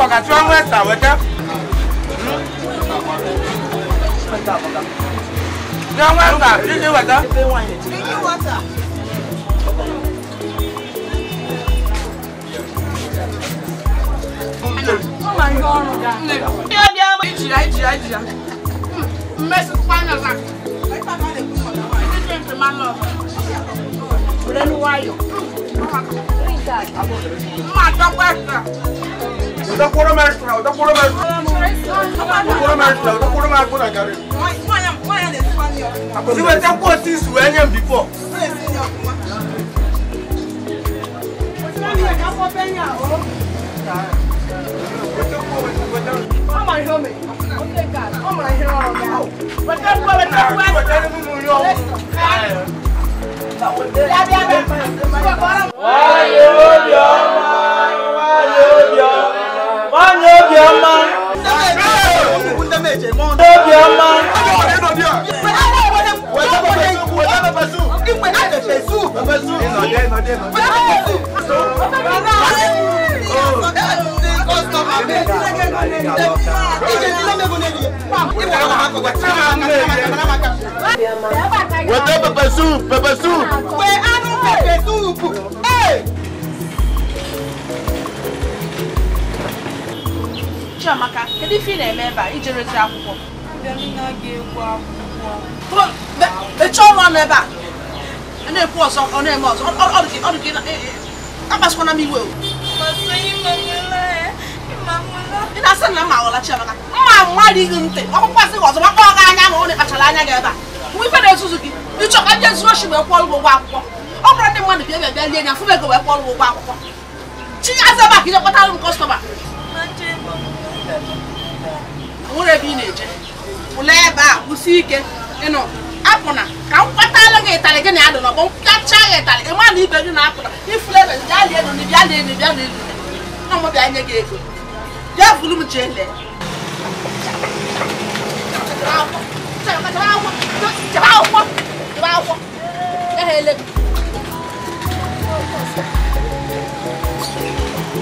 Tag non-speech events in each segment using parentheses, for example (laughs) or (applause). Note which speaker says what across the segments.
Speaker 1: kọ̀kà tí wọ́n mú ẹ̀sà wẹ́tẹ́. Ní ọmọ ẹ̀sà dídí wẹ̀tẹ́. Dídí wọ́tà. Ó máa yọ ọrùn dá.
Speaker 2: Ní ọdí ọmọ ìjìyà ìjìyà ìjìyà. Mmesi kwanyo na. Ndị dị mfe ma lọ. Were n'ụwa ayọ. Mma dọkwa ẹsẹ
Speaker 1: utakula maisha utakula maisha utakula maisha na gari siwe takuwa sisi wenye before
Speaker 3: Oh
Speaker 1: my homie. Okay, God. Oh my hero. But that's what I'm talking about. Listen. Why you, your mind? Why you, your Obioma. Obioma. Wọ́n tẹ́ pẹpẹ súùpù pẹpẹ súùpù. Pé á ní pẹpẹ súùpù.
Speaker 2: Chiamaka kedu ife ị na-eme ebe a ijerezi akwụkwọ eche ọrụ ọnụ ebe a na-ekwu ọzọ ọ na-eme ọzọ akpasịkwana m iwe ị na-asị na mma Chiamaka mma ntị ọkpụkpọ asị gị ọzọ gị anya ma ọ na-ekpachara anya gị ebe a mgbe ife na-ezuzu gị ịchọka ndị zuru oshi wee kwụọ ụgwọ akwụkwọ ọ bụrụ ndị mmadụ e bịa bịa bịa lie anya fụ ego wee kwụọ ụgwọ akwụkwọ chi ya ebe a ka ị jekọtara m kọstọma nwere ebe ị na-eje pụla ebe a kwụsị ike ịnọ apụna ka m kpatala gị ịtarị gị na ya dị n'ọgbọ mpịachaa gị ịtarị não mana ibe gị na apụna ifula ebe bịa lie elu na bịa lie elu bịa lie elu na mụ bịa nye gị ego bịa buru m jee lee chebe akwụkwọ chebe akwụkwọ eghele m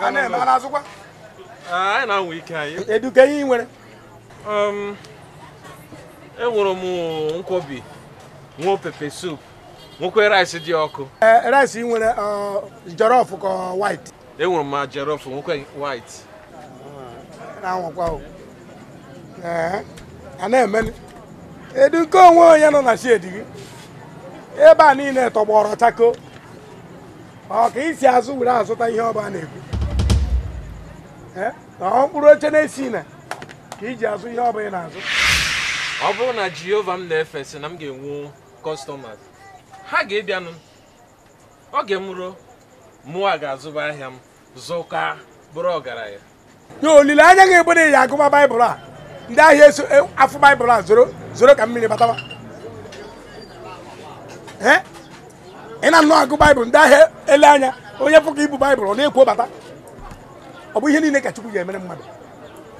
Speaker 1: a na azụkwa anyị na ike anyị ị nwere um, enwere m nkwobi nwee pepe sup nwekwe rice dị ọkụ eh, rice ị nwere uh, jollof ka white
Speaker 3: enwere m jollof nwekwe white
Speaker 1: na-anwakwa eh, edu nke onwe onye nọ na shedi gị niile tọgbọrọ chako ọ ka isi azụ were azụta ihe ọba na-ekwu na ọ mkpụrụ oche na-esi na ka iji azụ ihe ọba ị na-azụ ọ bụrụ na jehova m na-efe sị na m ga-enwu kọstọmas ha ga-ebianụ oge m ruo mụwa ga-azụba ahịa m zụka bụrụ ọgaranya na olileanya ga na ya agụma baịbụl a ndị ahịa eso e, afọ baịbụl a zoro ka mmiri bataba ị na-anụ agụ baịbụl ndị ahịa ele anya onye pụka ibu baịbụl ọ na-ekwu bata ọ bụ ihe niile ka chukwu ga-emere mmadụ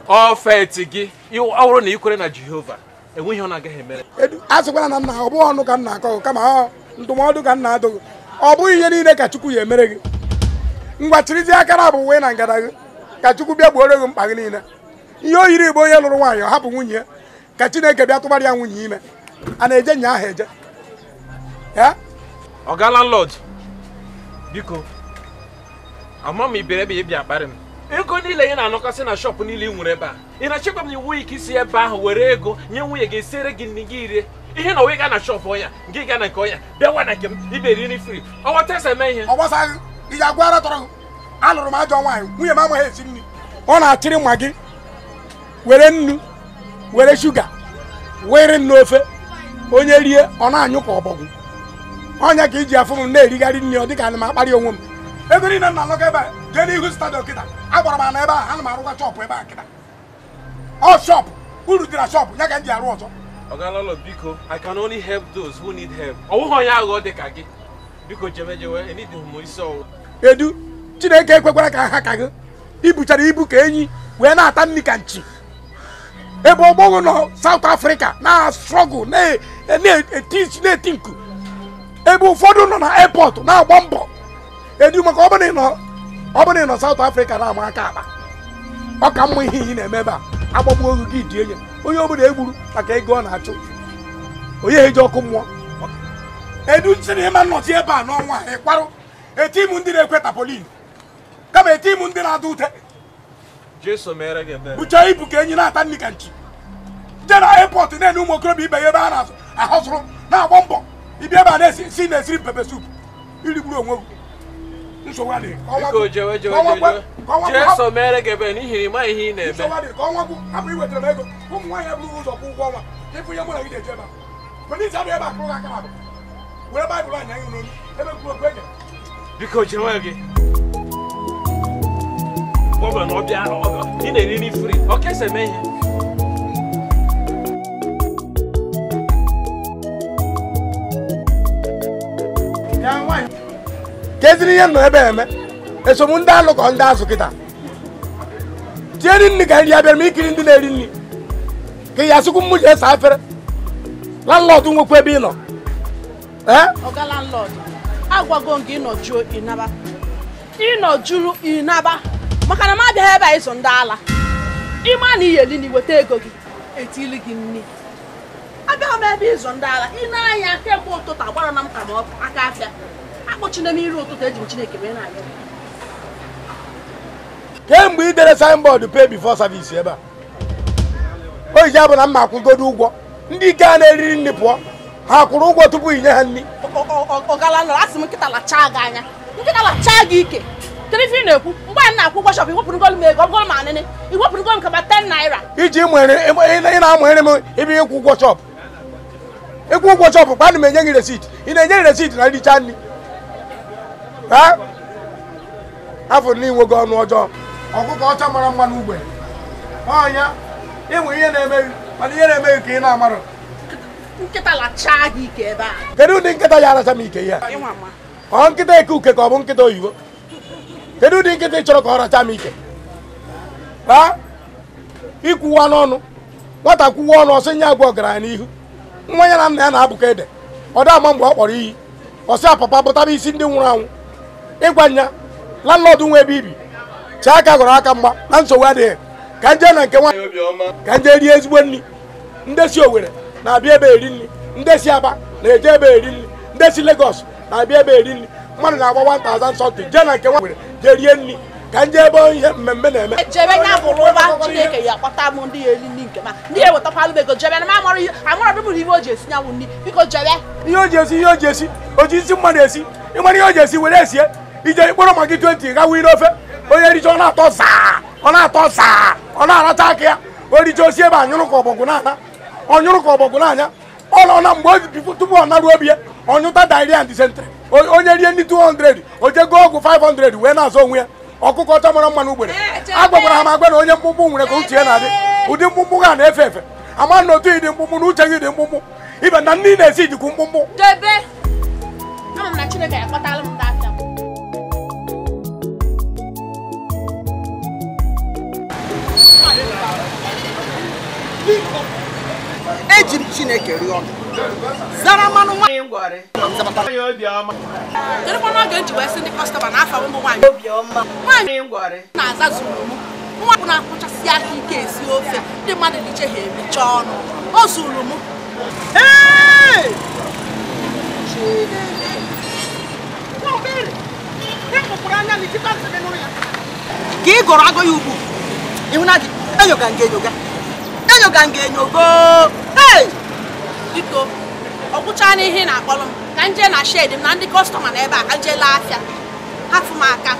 Speaker 1: ọfet gị ọhụrụ na ikwere na jehova enweghị ọ na-agaghị emere a sịkwala na nna ọ bụghị ọnụ ka nna akọ kama ọ ndụmọdụ ka nna adụghị ọ bụghị ihe niile ka chukwu ya emere gị ngwa chirizi akara bụ uwe na ngada gị ka chukwu bịa gbuoro gị mkpa gị niile ihe o yiri igbo onye lụrụ nwaanyị ọ hapụ nwunye ka chineke bịa tụbara ya nwunye ime a na-eje nya ahụ eje ọga landlord biko ama m ibere bi ị bịa m ego niile ị na-anọkọsị na shọpụ niile ị nwere ebe a ị na-achịkwa m na iwu ike ebe ahu were ego nye nwunye gị esiere gi nri gị rie ihe na ga na shop ọnya gị gaa na nke ọnya bịa nwa na nke m iberi nri fri ọghọtasa eme ihe ọgbasaghị ị ga-agwa ara tọrọ alụrụ m ajọ nwaanyị ma m amaghị esi nri ọ na-achịrị nwa gị were nnu were shuga were nnu ofe onye rie ọ na-anyụ ka ọbọgwụ ọnya ka iji afụ m na-erigharị nri ọ dịka ana m akparị onwe m ego niile na alọga ebe a jee n'ihu stadiọm kịta agwara m ana ebe a ana m arụkwa chọpụ ebe a kịta ọ shọpụ uru dị na shọpụ ya ka m e ji arụ ọzọ Ogalolo biko I can only help those who need help ọ onye aghụghọ dị ka gị biko jebe jemejewe enidịghị m isi ọwụ edu Chineke ekwekwara ka ha ka gị ibuchara ibu ka enyi wee na-ata nri ka nchi ebe ọgbọghọ nọ South Africa na struggle na-eti nku ebe ụfọdụ nọ na airport na-agba mbọ edu maka ọ bụrụ ị nọ South Africa na-ama aka akpa ọ ka mma ihe iyi na-eme ebe a agbagbuo ogu gị dị enye onye ọbụla egburu maka ego ọ na-achụ onye eji ọkụ mmụọ edu sịrị ịma nnọchi ebe a n'ọnwa ịkwarụ etimu ndị na-ekwe tapolin kama etimu ndị na-adụ ute bucha ibu ka enyi na-ata nri ka nchi jee na airport na-enye ụmụ okorobịa ibe ya ebe a na-ahọzụrụ na-agba mbọ ibi ẹ bá dẹ sí ní ẹsìn pẹpẹ soup ìlú ìgbúrò wọn nsọwa de. iko jẹwẹ jẹwẹ jẹsọ mẹrẹ gẹbẹ ní má ìhìn nà ẹbẹ. nsọwa kọ́ wọn kú àmì ìwé tẹ̀lé ẹ̀kọ́ kó mu wáyé ẹ̀bùrú wọ́sọ̀ kú wọ́n wa ẹ̀fọ́ yẹ múlẹ̀ yìí jẹ́ ma pẹ̀lú ìsàdó ẹ̀ bá kúrò kákàrà bẹ̀ wẹ́rẹ́ báyìí bọ̀ ànyàn yìí lónìí ẹ̀ kúrò gbẹ̀jẹ̀. iko jẹwẹ gẹ. wọ́n bẹ̀ ní ọbẹ̀ ní nà ní keziri ihe nọ ebe eme esomụ ndị alụkọ ndị azụ kịta tieri nri ka nri abịara m ikiri ndị na-eri nri ka ya asụkwu mmụ ji ese afere landlọdụ nwekwa ebe ị nọ ọga eh? landlọdụ agwago m gị ịnọjuo ịnaba ịnọjuru ịnaba maka na m abịaghị ebe a ịzụ ndị ala ịma na iyeli
Speaker 2: na iweta ego gị etili gị nri abịaghị m ebe ịzụ ndị ala ị na-anya kemgbe ụtụtụ agbara na m ka m aka afịa akpọchina m iri ụtụtụ eji m chineke mee na-aga
Speaker 1: kemgbe dere signboard pay before service ebe a o iji abụ na mma akwụgodo ụgwọ ndị ike a na-eriri nri pụọ ha kwụrụ ụgwọ tupu inye ha nri
Speaker 2: ọgalanọrọ asị m nkịta chaa gị anya chaa gị ike na-ekwu mgbe anyị na-akwụ ụgwọ shọp m ego m
Speaker 1: anịnị ị na m ebe ịkwụ ụgwọ shọp ịkwụ ụgwọ ana m enye gị resit ị na-enye gị resit na nricha nri afọ n'inwe gị ọnụ ọjọọ ọkụkọ ọcha mara mma n'ugbe ọnya ịnwe ihe na-emeghị mana ihe na-emeghị ka ị na-amarụ ike kedu ụdị nkịta ya aracha m ike ya ọ nkịta eke uke ka ọ bụ nkịta oyibo kedu ụdị nkịta ị chọrọ ka ọ racha m ike raa ikwuwa n'ọnụ nwata kwuwa ọnụ ọsọ nye agwa ọgaranya n'ihu nwa ya na nna ya na abụkọ ede ọ dị ama mgbe ọ kpọrọ iyi ọsị apapa bụtaba isi ndị nwụrụ anwụ ịgwa nya landlord nwe ebe ibi chee aka gọrọ aka mgba na nsogbu adịghị ka nje na nke nwaanyị ka nje rie ezigbo nri ndesi si Owerri na-abịa ebe eri nri ndesi Aba na-eje ebe eri nri ndesi si Lagos na-abịa ebe eri nri mmadụ na-agba 1000 something jee na nke nwaanyị jee rie nri ka nje ebe ihe mmemme na-eme e
Speaker 2: ndị eri nri ndị na ihe o ji esi nyanwụ nri biko jebe
Speaker 1: ihe o ji mmadụ esi ihe o ji esi were esie ije ikpọrọ magi 20 gawa ire ofe onye richa na-atọ zaa ọ na-atọ zaa ọ na-aracha aka ya o richa osi ebe anyụrụ ka ọbọgwụ na-anya ọnyụrụ ka anya ọ nọ na mgbe obi tupu ọ obi ya ọnyụta diarrhea and dysentery onye rie ndị 200 o je 500 wee na-azọ onwe ya ọkụkọ ọcha mara mma na ugbere a ha ma agwa na onye mkpụmkpụ nwere ka uche ya na-adị ụdị mkpụmkpụ ga na-efe efe ama na otu ịdị mkpụmkpụ na uche gị dị mkpụmkpụ ibe na ị na-esi jikwu mkpụmkpụ eji m chineke rịọ zara mmanụ nwaanyị kedụkwana oge nji ndị na afa ụmụ nwaanyị obiọma na m na-akpụchasị aka ike esi ofe ndị mmadụ na iche ha emecha ọnụ o zuru m ka ị gọrọ agụ ya ịhụna gị enyoga nga enyoga
Speaker 2: enyoga nga enyogo biko ọ gwụchaa n'ihe ị na-akpọrọ m ka nje na shed m na ndị kọstọma na ebe a ka m laa afịa hafụ m aka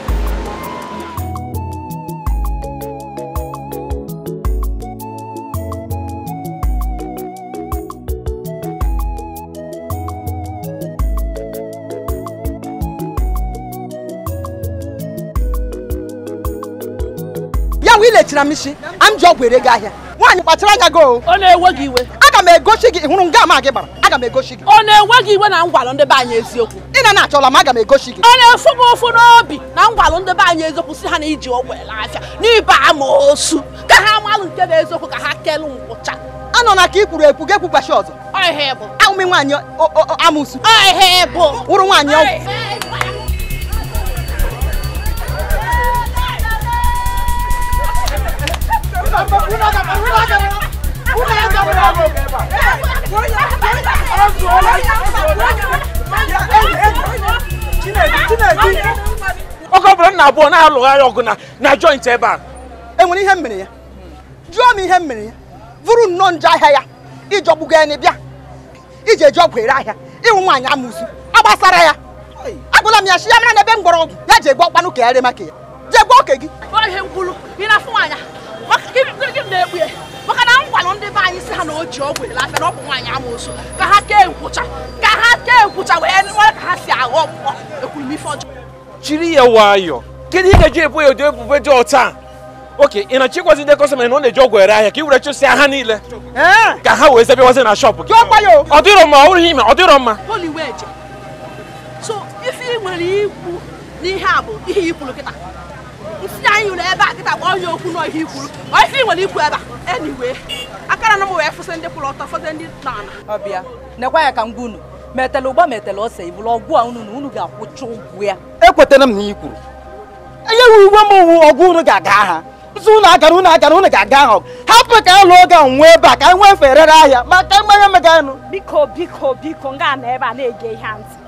Speaker 1: kpachara m isi a m ji ọgwụ ere gị ahịa nwaanyị kpachara anya gị o ọ na-ewe gị iwe aga m egosi gị hụrụ nga ama gị gbara aga m egosi gị ọ na-enwe gị iwe na ngwalụ ndị anyị eziokwu ị na na-achọla m aga m egosi gị ọ na-efu m ofu n'obi na ngwalụ
Speaker 2: ndị be anyị eziokwu si ha na iji ọgwụ ele afịa n'ibe ama osu ka ha malụ nke na eziokwu ka ha kelụ nkwụcha anọ na ka ị ekwu gị ekwugbachi ọzọ ahụmị nwaanyị
Speaker 1: amụsu wụrụ nwaanyị ọgwụ oge ọ na abụọ na-alụgharị ọgụ na na joint ebe a enwere ihe mere ya jụọ m ihe mere ya bụrụ nnọọ nje ahịa ya ịjọgbugo ya bịa iji eji ọgwụ ere ahịa ịnwụ nwaanyị amụzu agbasara ya agụla m ya shi ya mara na ebe mgbọrọgwụ ya ji egbu ọkpanụ ka ya ree
Speaker 2: maka ya jee gwa oke gị gịnị na maka na ndị si ha n'oji ji ọgwụ na ka ha ka ha nkwụcha nwere ka ha si ekwuru
Speaker 1: jiri ya nwayọọ kedu ị ga-eji ebu ya ụdị dị ọta oke ị na-achịkwazi ndị kọstọma na ọ na-eji ọgwụ ere ahịa ka were chụsịa ha niile ka ha wee zebewazi na shọpụ gị ọ dịrọ mma ọ ime ọ dịrọ mma
Speaker 2: so ife nwere ikwu n'ihe a bụ ihe ikwuru kịta ntinye anyị ụlọ ebe a kịta gbaa onye okwu n'ọhịa ikwuru onye isi nwere ikwu ebe a eniwe akara na m wee fụsị ndị kwụrụ ọtọ fọdụ ndị na-ana ọbịa nekwa ya ka ngwa
Speaker 1: metela ụgba metela ọsọ ibụrụ ọgwụ a unu na unu ga-akwụcha ya ekwetara m na kwuru uwe m wu ọgụ unu ga-aga ha nso unu agara unu agara unu ga-aga ahụ hapụ ka alụ e nwee ebe a ka e nwee fere ahịa maka
Speaker 2: mmanya meganụ biko biko biko nga na ebe a na-ege ihe ntị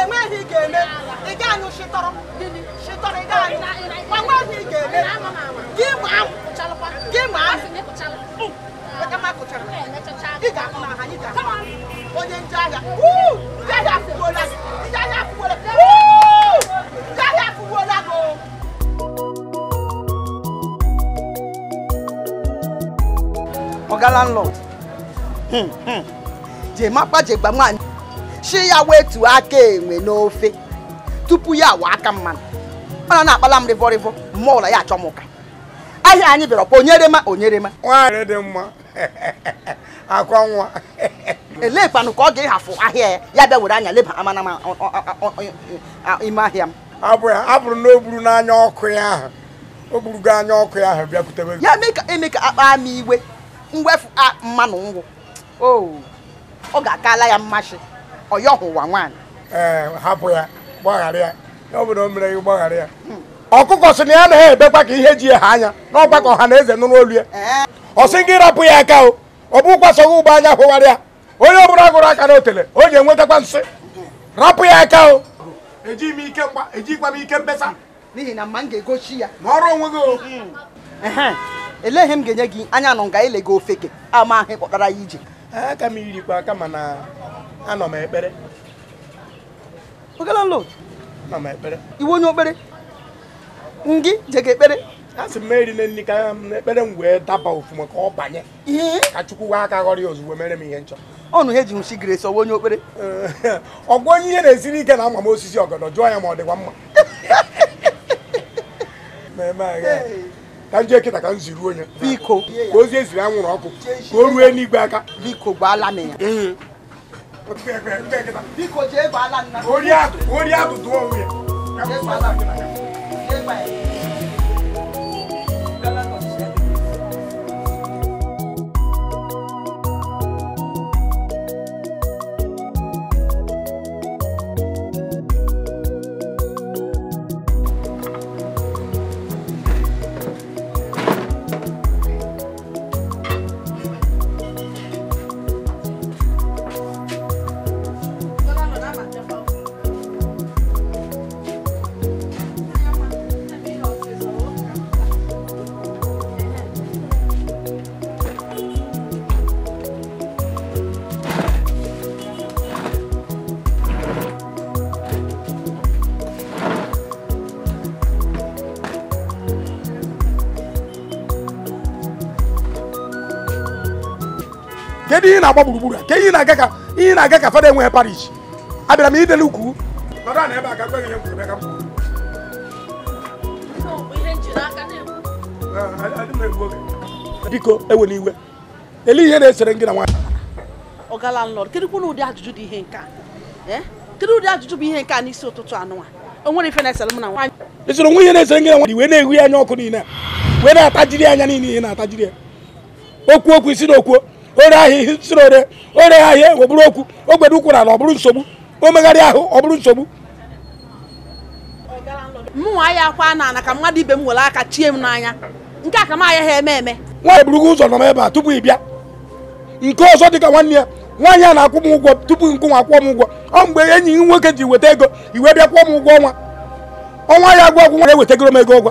Speaker 2: enweghị ị ga-eme ị gaghị shịtọrọ shịtọrọ ị gaghị enweghị ị ga-eme gị ma gị ma onye ndị agha ndị agha afụgbuola gị ndị agha
Speaker 1: afụgbuola gị ya wetu aka enwe n'ofe tupu ya awa aka mmanụ ọ na na-akpala m rịvọrịvọ mmụọ ụlọ ya achọ m ụka ahịa anyị bịara ọkpa onyere onyere onyerema nwaanyị dị mma (laughs) akwa nwa (laughs) elekwanụ ka ọ ga-ịhafụ ahịa ya ya bịa were anya leba amanama ime ahịa m abụrụ na o gburu n'anya ọkụ ya ahụ o gburugo anya ọkụ ya ahụ bịakwutebe ya mee ka eme ka akpa ama iwe mwefu mmanụ ngwụ oh, ọ ga-akala ya mmasị ọyọhụwa nwaanyị ee hapụ ya gbaghara ya obodo mere gị gbaghara ya hmm. ọkụkọ sị na ya anaghị ebekwa ka ihe ji ha anya n'ọgbakọ hmm. ọha na eze nụrụ olu ya ọ sị gị rapụ ya aka o ọ bụ kwasoghị ugbo anya hụwara ya onye ọbụla gụrụ aka na otele o ji enwetakwa nsị hmm. rapụ ya aka o ejighị m ike mkpesa n'ihi na mma m ga-egochi ya ma ọrụ onwe gị elee ihe m ga-enye gị anya nụ nga ile gị ofeke ama ahụ kpọtara ya ije aka m irikwa aka mana anọ m ekpere oge landlord anọ m ekpere Iwu onye okpere ngị jega ekpere a sị m eri na nri ka ekpere m wee daba ofuma ka ọ banye ka chukwu wee aka ghọrọ ya ozugbo mere m ihe nchọ ọnụ he ji nshi gresi ọwa onye okpere (laughs) ọgwụ onye ihe na-esiri ike na ama m osisi ọgọdọ jụọ ya ma ọ dịkwa mma (laughs) ka m ji kịta ka m ziri onye biko ka ozi eziri anwụrụ ọkụ ka o ruo n'igwe aka biko gbaala m ya bí kò jẹ́ bàálà nínú. orí àtúntò òun yẹn. jẹ́ bàálà nínú. jẹ́ bàálà nínú. kedu ihe na-agba gburugburu a ihe na-aga ka ihe na-aga ka fada enweghị parish abịara m idele ukwu biko ewena iwe ele ihe na-esere gị na nwaanyị
Speaker 2: ọgala nlọd kedụkwa na ụdị ajụjụ dị ihe nke a eh? kedụ ụdị ajụjụ bụ ihe nke a n'isi ụtụtụ anụnwa o nwere ife na-esere m na nwaanyị
Speaker 1: esere onwe ihe na-esere gị na nwaanyị wee na-ehu anya ọkụ niile wee na-atajiri anya niile ihe na-atajiri ya okwu okwu isi na okwuo ore ahịa ihe nsiri ore ore ahịa egwe okwu ogbede ụkwụ n'ala ọ bụrụ nsogbu omegharị ahụ ọ bụrụ nsogbu
Speaker 2: mụnwa ya akwa na ana ka mmadụ ibe m nwere aka chie m
Speaker 4: n'anya nke a ka m aya ha eme eme
Speaker 1: nwaanyị burugo ụzọ nọ m ebe a tupu ị bịa nke ọzọ dịka nwanne ya nwaanyị a na-akwụ m ụgwọ tupu nkụnwa kwụọ m ụgwọ ọ mgbe enyi gị nwoke ji weta ego iwe bịa kwụọ m ụgwọ ọnwa ọnwa ya agwọ ọgwụ nwa ewetegoro m ego ụgwọ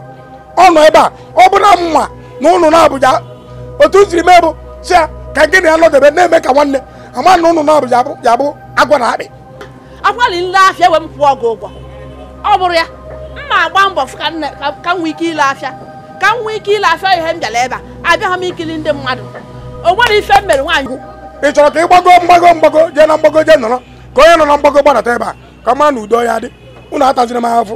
Speaker 1: ọ nọ ebe a ọ bụrụ na mma na ụnụ na Abuja otu m siri mee bụ si ka gị na ya nọdebe na-eme ka nwanne ama na ụnụ na abụ yabụ agwa na akpị agwali nle afịa ewe m pụọ ọgụ ụgwọ ọ
Speaker 2: bụrụ ya mma agba mbọ ka m nwee ike ile afịa ka m nwee ike ile afịa ihe m bịara ebe a abịaghị m ikiri ndị mmadụ o nwere ife m mere nwaanyị
Speaker 1: ị chọrọ ka ị gbago mgbago mgbago jee na mgbago jee nọrọ ka onye nọ na mgbago gbanata ebe a ka mara na udo ya dị unu ataziri m ahụfụ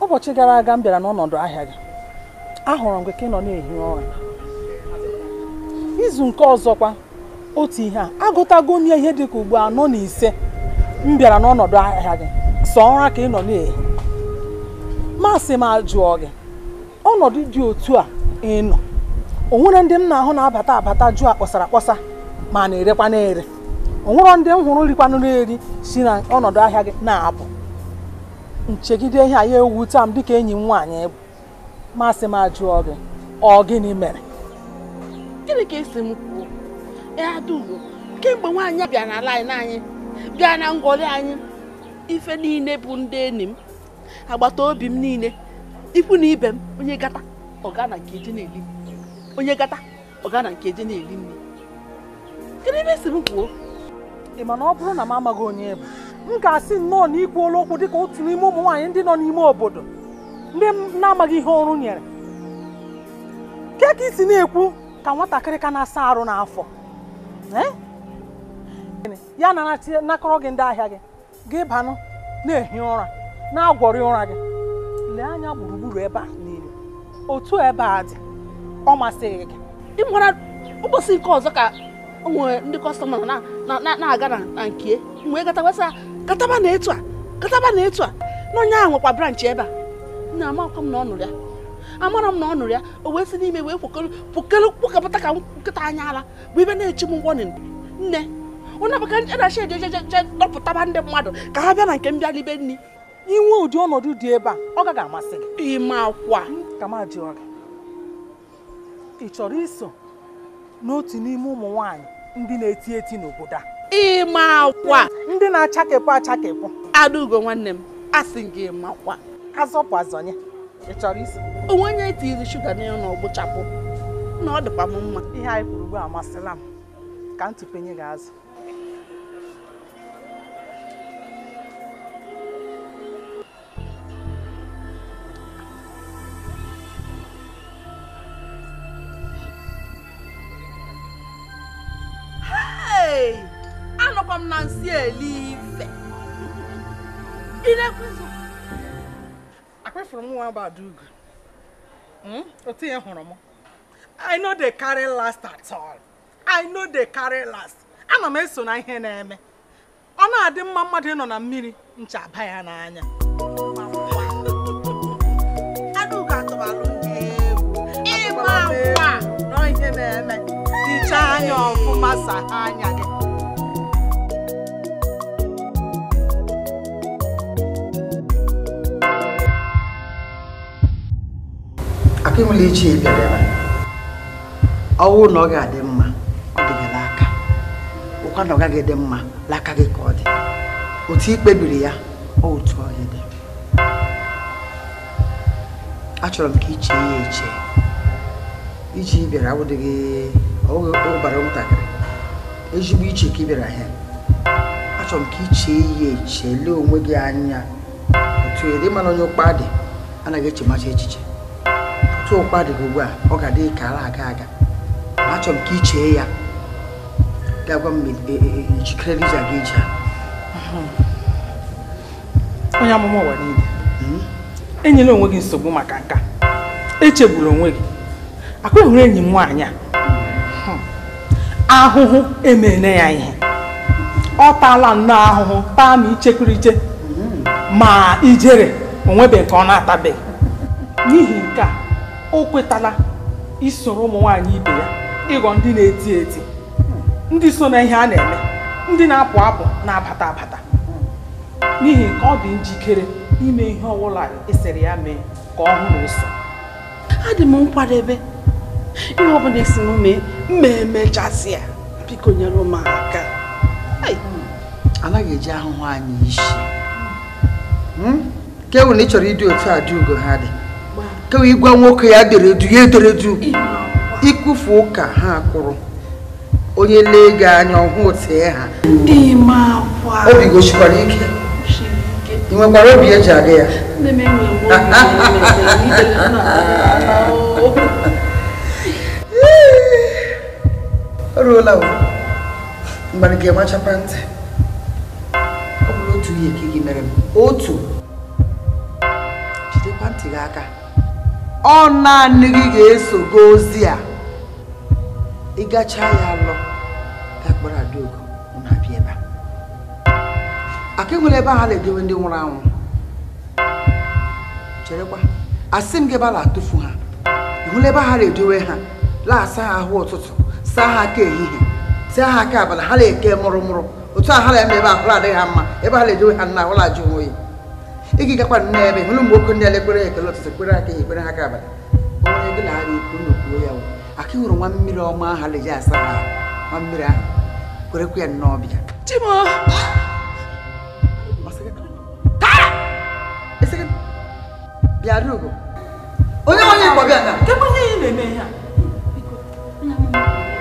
Speaker 1: ụbọchị gara aga m bịara n'ọnọdụ ahịa gị ahụrụ m gị ka ị nọ na-ehi ụra izu nke ọzọkwa otu ihe a agụtago onye ihe dị ka ugbu anọ na ise m bịara n'ọnọdụ ahịa gị sọ ụra ka ị nọ na-ehi masị m ajụọ gị ọnọdụ dị otu a ị nọ o nwere ndị m na-ahụ na-abata abata jụọ akpọsara akpọsa ma na-erekwa na-ere o nwere ndị m hụrụ rikwanụ na-eri si na ọnọdụ ahịa gị na-apụ nchegide ihe anyị ewute ewuta m dịka enyi m nwaanyị bụ masị m ajụọ gị ọ gịnị mere
Speaker 2: gịnị ka esi m
Speaker 1: kwuo ya dugo kemgbe nwaanyị bịa na lain anyị bịa na ngwọrị anyị ife niile bụ ndị enyi m agbata obi m niile ikwu na ibe m onye gata ọgana nke eji na-eli onye gata ọgana nke eji na eri nri kedu ebe esi m kwuo ị ma na ọ bụrụ na m amaghị onye bụ m ga-asị nnọọ na ikwuola okwu dịka otu n'ime ụmụ nwaanyị ndị nọ n'ime obodo ndị na-amaghị ihe ọrụ nyere ke ka isi na-ekwu ka nwatakịrị ka na-asa arụ n'afọ eh? ya na gị ndị ahịa gị gị banụ na-ehi ụra na-agwọrị ụra gị lee anya gburugburu ebe a niile
Speaker 2: otu ebe a dị ọ masịghị gị ịmara ụbọchị nke ọzọ ka nwee ndị kọstọma na-aga na nke mgbe gata kataba na etu a kataba na etu a na onye ahụ nwekwa branch ebe a na amakwa m na ọ
Speaker 1: ya amara m na ọ o wee si n'ime wee kwukere kwukapụta ka nkịta anya ala bụ ibe na-echi m ngwọ nne onye je edachi ejejeje dọpụtaba ndị mmadụ ka ha bịa na nke m libe nri inwe ụdị ọnọdụ dị ebe a ọ gaghị amasị gị ime akwa kamadịọra ị chọrọ iso n'otu n'ime ụmụ nwaanyị ndị na-eti eti n'obodo a ịma akwa ndị na-achakepụ achakepụ adaugo nwanne m asị gị makwa azọpụ azọnye ị chọrọ isi onwe onye tiri shuga n'elu na ọgbụchapụ na ọ dịkwa m mma ihe anyị kwuru ugbu amasịla m ka m tụpenye gị azụ Hey! anọkwa m na nsị ife. akpafụrụ m nwa Abadugo hmm? otu ihe hụrụ m I no dey carry last at all I no dey carry last ana m eso na ihe na-eme ọ na-adị mma mmadụ ịnọ na mmiri ncha ya n'anya
Speaker 4: (laughs) ihe na-eme dịcha anya ọfụma saa anya gị
Speaker 1: Akụmụlụ ichie bịara ebe ọwụ na ọ ga-adị mma ọ dịghị n'aka ụkwa na ọ gaghị dị mma n'aka gị ka ọ dị otu ị kpebiri ya ọ otu ọ dị achọrọ m ka ichie ya eche iji bịara awụdịghị ọgbara nwatakịrị ezigbo iche ka ị bịara ha achọrọ m ka iche ya eche lee onwe gị anya otu ịdị mana onye ụkpa dị anaghị echemacha echiche tụ ụkwa dị gị ugbu a ọ ga-adị ka ala aga aga ma achọrọ m ka ị chee ya gagwa m e, e, e, jikere rija gị eji onye amụma ụwa niile hmm? enyela onwe gị nsogbu maka nka echegburu onwe gị akụghịrị enyi m nwaanyị a hmm. ahụhụ emeela ya ihe ọ taala nnọọ ahụhụ taa ma ichekiriche hmm. ma ijere onwebe nke ọ na-atabeghị n'ihi nke a o kwetala isoro ụmụ nwaanyị ibe ya ịghọ ndị na-eti eti ndị so na ihe a na-eme ndị na-apụ apụ na-abata abata n'ihi ka ọ dị njikere ime ihe ọbụla esere ya mee ka ọ hụ na A adị m nkwadebe ihe ọbụla esi m mee mma emechasị ya biko nyere m aka anaghị eji ahụhụ anyị isi hmm? ka ewu na ị chọrọ ịdị otu a dị ugo ha dị kewa ịgwa nwoke ya deredu ya ederedu ikwufu ụka ha kwụrụ onye lee anya ọhụụ tee ha obi gosikwara ike ị nwekwara obi eji aga ya oruola ga-emachapa ntị ọ bụrụ otu ihe ka gị mere m otu jidekwa ntị gị aka ọ naanị gị ga-eso go ozi a ịgacha ya alọ gakpara adaogo na-abịa ebe a aka enwere ebe ha na-edowe ndị nwụrụ anwụ cherekwa asị m gị ebe a na-atụfu ha ihụla ebe ha na-edowe ha laasa ha ahụ ụtụtụ saa ha aka ehihie saa ha aka abalị ha na-eke mụrụ mụrụ otu a ha na-eme ebe ahụrụ adịghị ha mma ebe ha na-edowe ha nna ahụla ajụ onwe ya ị ga gakwa nne ebe hụrụ ụmụ nwoke ndị elekpere ekele ụtụtụ kpere aka ekpere ha aka abalị onye gị na ara ikwu ya ya aka ịhụrụ nwa mmiri ọma ahụ leji asa ha nwa mmiri ahụ kwerekwa ya nnọọ ọbịa onye onye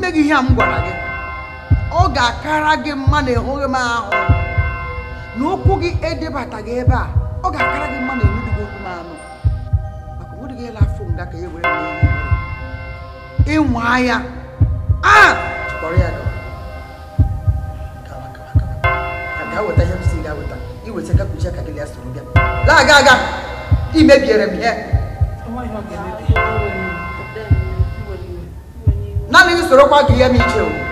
Speaker 1: ma gị ihe a m gwara gị ọ ga-akara gị mma na ịhụghị m ahụ na ụkwụ gị edebataghị ebe a ọ ga-akara gị mma na enudughị okwu m anụ maka ụdị gị ịla afọ nga ka e were ịnwa ya a chịkọrọ ya ga-eweta ihe gị ya naanị usoro kwa ka ihe m iche o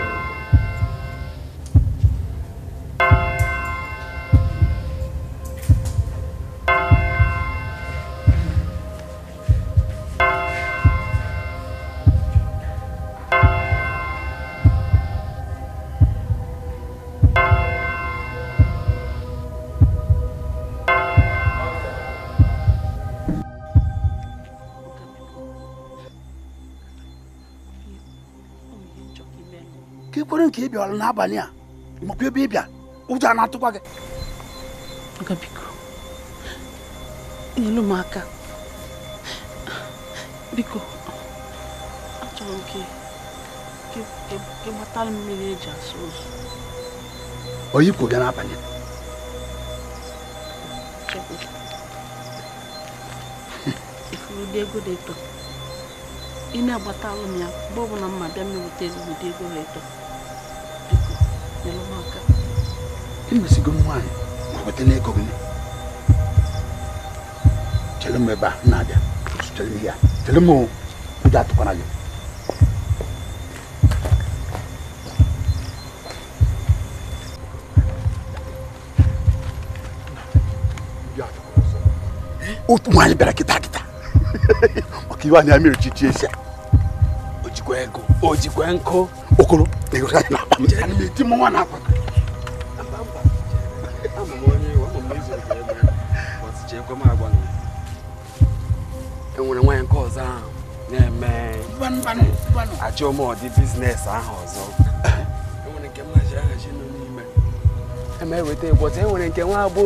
Speaker 1: ka ị kwere nke ị bịara n'abalị a makwa ebe ịbịa ụjọ a na-atụkwa gị biko nyelu m aka biko achọrọ m ka mmiri eji asụ ụzọ oyipụ bịa n'abalị
Speaker 2: ifuru dị ego dị eto ị na-agbata alụ ya mgbe ọbụla mma bịa ezigbo ego ha eto biko nyere m aka nwaanyị
Speaker 1: ma n'ego gị chere m ebe a na-abịa chere m ihe chere m ụjọ atụkwara gị otu nwaanyị bịara kịta maka iwe anya mere chichi esi ojikwa ego ojikwa nkụ okoro na akwa enwere nwaanyị nke na-eme biznes ahụ ọzọ enwere nke na ahachi nọ n'ime enwere e nke nwa agbọ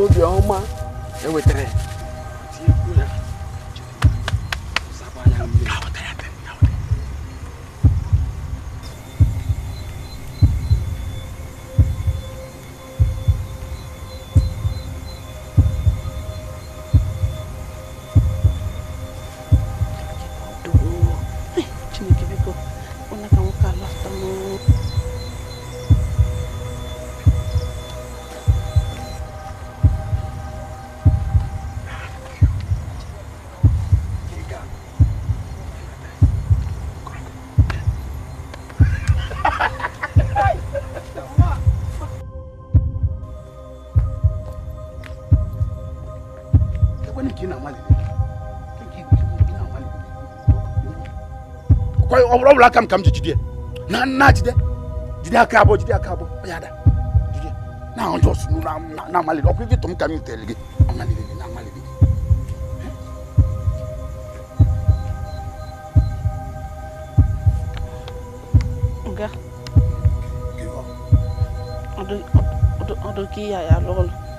Speaker 1: ọ bụrụ aka m ka m ji jide na nna jide jide aka abụọ jide aka abụọ ya da jide na ọjọ sunu na amaliri ọkụ ibi tụm ka gị gị na gị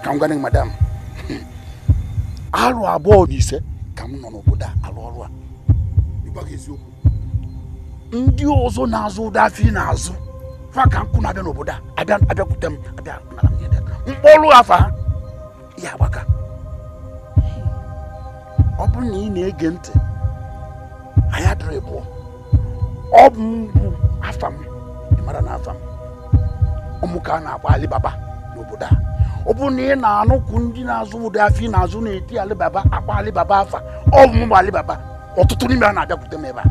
Speaker 1: ka m gwa madam arụ abụọ na ise ka m nọ n'obodo a ọrụ a ndị ọzọ na-azụ ụda afọ na-azụ fa ka nkụ na-abịa n'obodo a abịakwute m abịa mkpọrụ afa ya agbaka ọ bụrụ na ị na-ege ntị anyị adịrị pụọ ọ bụ mbụ afa m mara na afa m ụmụ ka a na-akpọ alibaba n'obodo a ọ bụrụ na ị na-anụkwu ndị na-azụ ụdị afọ ị na-azụ na-eti alibaba akpa alibaba afa ọ bụ mbụ alibaba ọtụtụ n'ime a na-abịakwute m ebe a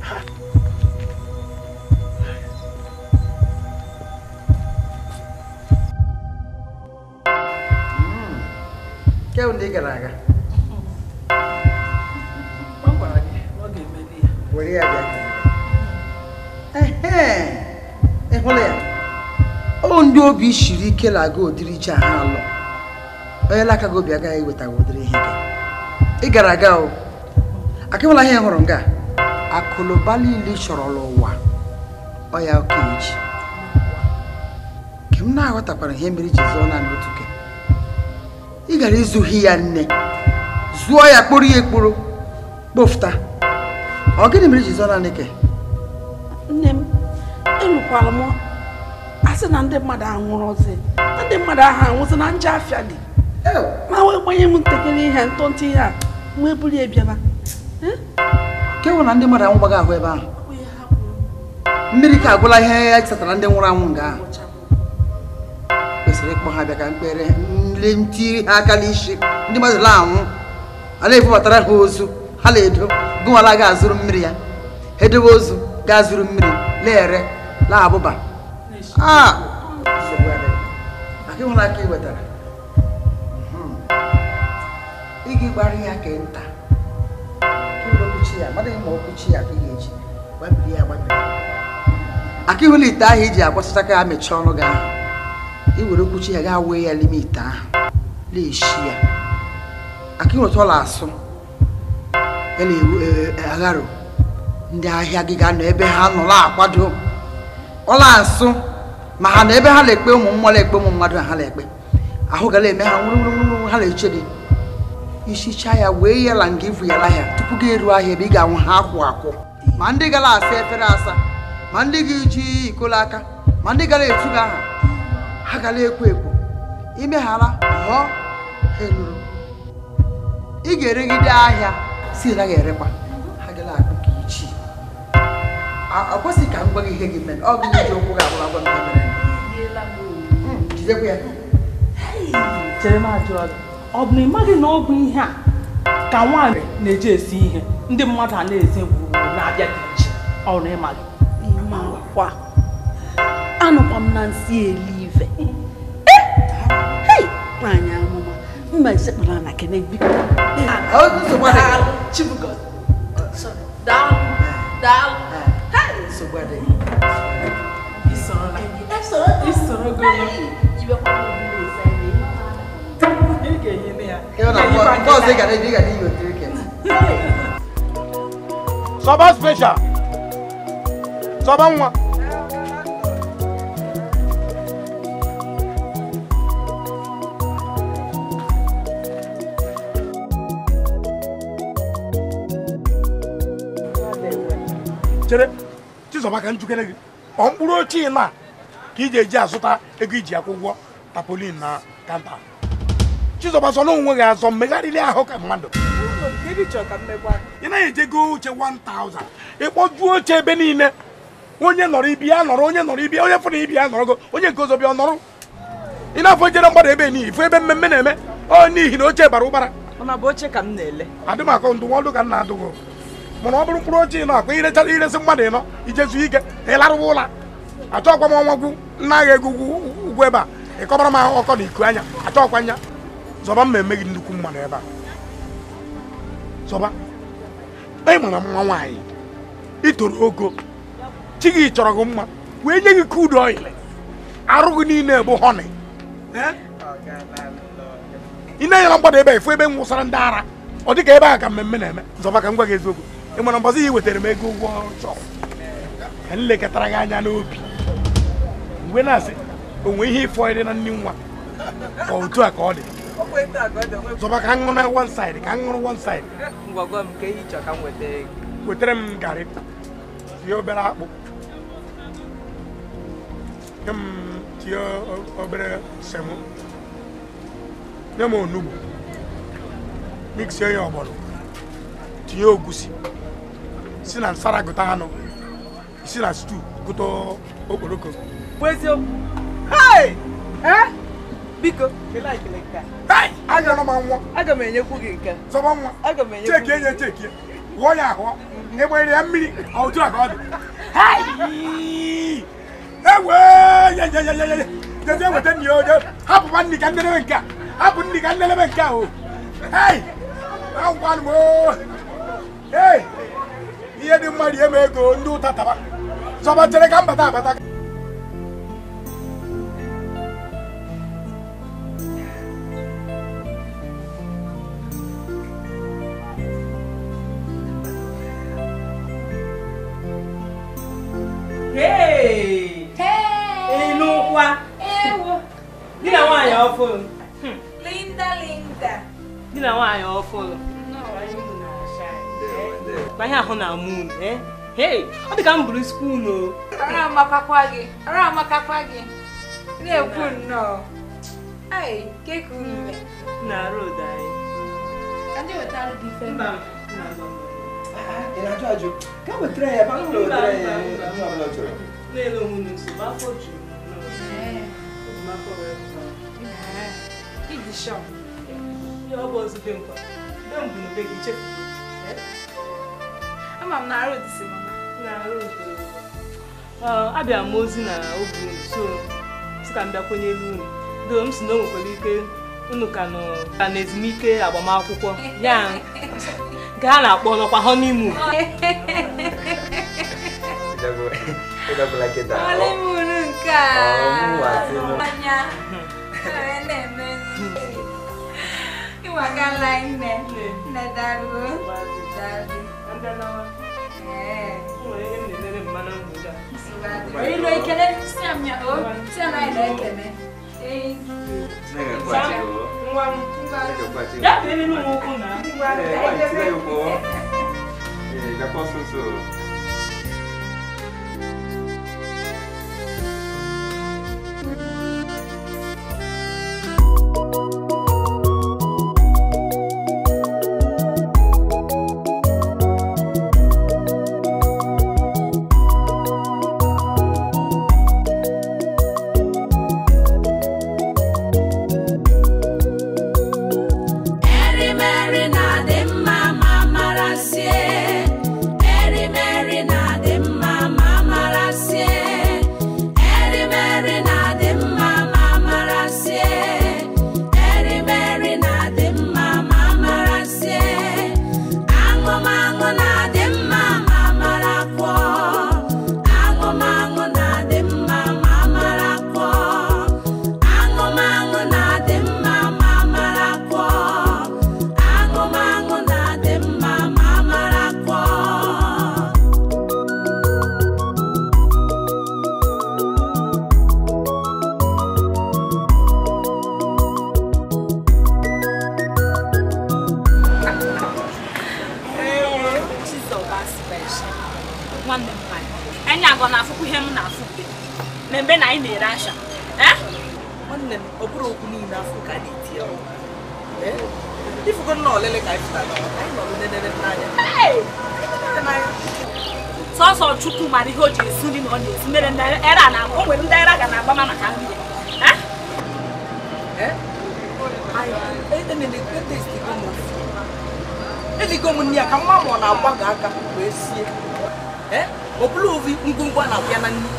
Speaker 1: nke bụ ndị ị gara aga were ya ya ọ ndị obi shiri ike na-aga ụdịrị iche ha alụ onye lakago obi iweta eweta ụdịrị ihe ị gara aga o akịwala ihe hụrụ nga akụnụba niile chọrọ n'ụwa ọ ya ka eji nke m na-aghọtakwara ihe mere ji zụọ naanị otu ke ị gara izuhi ya nne zụọ ya kpụrụ ya ekpụrụ
Speaker 3: kpofụta ọ gịnị mere ji zụọ naanị ke
Speaker 2: nne m
Speaker 1: enwekwara m asị na ndị mmadụ anwụrụ ọzọ ndị mmadụ ahụ anwụsị na nje afịa dị ma wee gbanye m ntakịrị ihe ntụntụ ihe a wee buru ya nke nwụ ndị mmadụ anwụgbaghị ahụ ebe ahụ mmiri ka agwụla ihe ya chetara ndị nwụrụ anwụ nga ahụ kwesịrị ịkpọ ha bịa ka mkpere nle nti ha aka n'isi ndị mmadụ la anwụ ala ebubatara ha ozu ha na-edo gụnwala ga-azụrụ mmiri ya ha edobe ozu ga-azụrụ mmiri na-ere na-abụba aka ịhụrụ aka ị wetara ị ga-agbara ya ka nta chi ya mmadụ ma ọkụ chi ya ka ị ga-eji gbabiri ya gbabiri aka ihụla ite ahụ iji agwasịta ka ya mechie ọnụ gị ahụ i were okwu chi ya gaa wee ya n'ime ite ahụ na-eshi ya aka eh, eh, ịnweta ọla asụ ya na-agharo ndị ahịa gị ga-anọ ebe ha nọ na-akwado ọla asụ ma ha na ebe ha na-ekpe ụmụ mmụọ na-ekpe ụmụ mmadụ ha na-ekpe ahụ gara eme ha nwụrụ nwụrụ ha na-eche gị isichaa ya wee yala nga ibuyala ya tupu gị eruo ahịa ebe ị ga-anwụ ha akwụ akwụ ma ndị gara asa efere asa ma ndị gị ji ikolo aka ma ndị gara etu gị aha ha gara ekwo ekwo imeghara ha eluru ị ga-eregide ahịa si naghị erekwa ha gara akpụ ka ichi ọ kwesịghị ka m gwa gị ihe gị mere ọ gị ji okwu gị agwara agwa m mere hmm, jidekwa ya chere m ajụ ọdụ ọ bụ na ị maghị na ọ bụ ihe a ka nwaanyị na-eji esi ihe ndị mmadụ a na-eze gburugburu na-abịa dị iche ọ na ịmaghị anụkwa m na nsị elive e!
Speaker 4: nwaanyị amụma mma esekpara na kene biko
Speaker 3: You know, boss, they can drink and you drink it.
Speaker 1: Soba special. Soba one. chere Chizoba ka njikere gị ọ mkpụrụ ochie na ka ị ji eji azụta ego iji tapolin na kanta Chizoba sọ na onwe gị azọ mmegharịrị ahụ ka mmadụ ị naghị ejego oche 1000 ịkpọjuo oche ebe niile onye nọrọ ibi ya nọrọ onye nọrọ ibi onye fụrụ ibi ya nọrọgo onye nke ọzọ bịa ọ nọrọ ị na-afọ jere mgbada ebe n'ihi fụ ebe mmemme na-eme onye n'ihi na oche bara ụbara adị m akọ ndụmọdụ ka m na-adụgo mana ọ bụrụ mkpụrụ oche ị nọ akwa irechara iresị mmadụ ị nọ ijezu ike ịlarụwa ụla achọkwa m ọnwa gwu nna agha ego ugwu ebe a ịkọbara m ahụ ọkọ na iku anya achọkwa nya zọba mma gị nnukwu mmanụ ebe a zọba anyị mara mma nwaanyị itoro ogo chi gị chọrọ gị mma wee nye gị kudu ọyịlị arụ gị niile bụ họnị ị na-enyere mgbada ebe a ebe m wụsara ndị ara ọ dịka ebe a ka mmemme na-eme zọba ka m gwa gị eziokwu ị mara mbọzi ya wetara m ego ụgwọ chọrọ ka m lekọtara gị anya n'obi mgbe na-asị o nwee ihe ịfọ dị na nwa otu a ka ọ dị zọba ka m ṅụrụ one side ka m one side ngwagwa m e ka ehi chọ ka m weta ego wetara m garị tinye obere akpụ nye m tinye obere semo nye m onugbu miksie ya ọgbọnọ ogusi si na nsara gụta anụ si na stew gụta okporoko bụ eziokwu eh? biko kelee ekele nke a anyọrọ m anwụọ aga m enyekwu gị nke zọba nwa aga m enyekwu cheki enye cheki wụọ ya ahụọ na ịgbanyere ya mmiri ọjụ a ka ọ dị ewe yeyeyeyeye jezi eweta nni oje hapụba nni ka ndelebe nke a hapụ nni ka ndelebe nke a o hei agwanụ m o ee ihe dị mma rie m ego ndị ụta taba zọba chere ka mbata abata
Speaker 5: Di na nwaanyị ọhụrụ. Hmm. Linda Linda.
Speaker 2: Di na nwaanyị Ma ihe ahụ na moon, eh? Hey, ọ dị ka m o. Ara amakakwa
Speaker 5: gị, ara Na-ekwu nnọọ. Ai, ka unu
Speaker 2: Na road anyị.
Speaker 5: Anyị wetara gị ife. Mba,
Speaker 3: Ị na-ajụ ajụ?
Speaker 1: Ka wetara ya, ma m wetara ya. Mba, mba, mba. Na-ele onwe ma afọ juru. Ee. afọ wee. isham ya ọ bụ ozu be nkwa be mbụ na be gị chefugo
Speaker 5: ama m na arụ dịsị mama na arụ
Speaker 1: abịa m ozi
Speaker 2: na obi so si ka m bịa kwenye elu unu doo m si na o nwekwara ike unu ka nọ ka na ezumike agbamakwụkwọ (laughs) ya nke na-akpọ nọkwa honeymoon
Speaker 3: unu (laughs) nke a
Speaker 5: tuwakalaine nadaruo
Speaker 2: oyilo ekele
Speaker 5: siamya o sianaina ekele
Speaker 3: D'accord, c'est ça. thank you
Speaker 2: sọsọ chukwu mara ihe o ji esi nri na ọ na-esi mere a era na o nwere ndị era ga na-agba maka nri eligo m nri ya ka mma mụọ
Speaker 1: na-agbago aka wee sie ọ eh? bụla ovi ngwongwo na-abịa na nri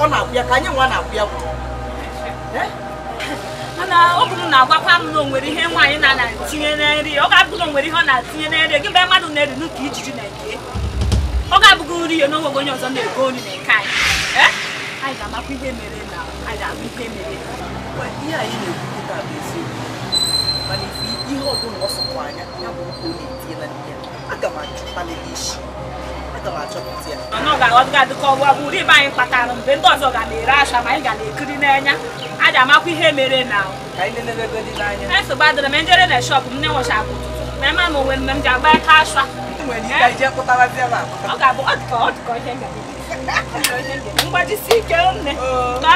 Speaker 1: ọ na-abịa ka anyị nwa na-abịa
Speaker 2: na ọ bụrụ na agwa m na onwere ihe nwaanyị na-etinye na nri ọ ga-abụghị na onwere ihe ọ na-atinye na nri mgbe mmadụ na-eri n'ụka ijiji na-eke ọ ga-abụghị nri ya na onye ọzọ na-ego nri na nke anyị eh? anyị ga-amakwa ihe mere na anyị ga ihe mere ihe anyị na-ekwu bụ ọ anya ya bụ na-etinye na aga m isi anyị kpatara mgbe ndị ọzọ ga na-ere asha ma anyị ga ekiri n'anya a ji amakwa ihe mere na esogba dịrị m njere na m na-enwechapụ ma ịma na onwe m ji agba aka asha ọ ga-abụ ọ mgbajisi ike nne ka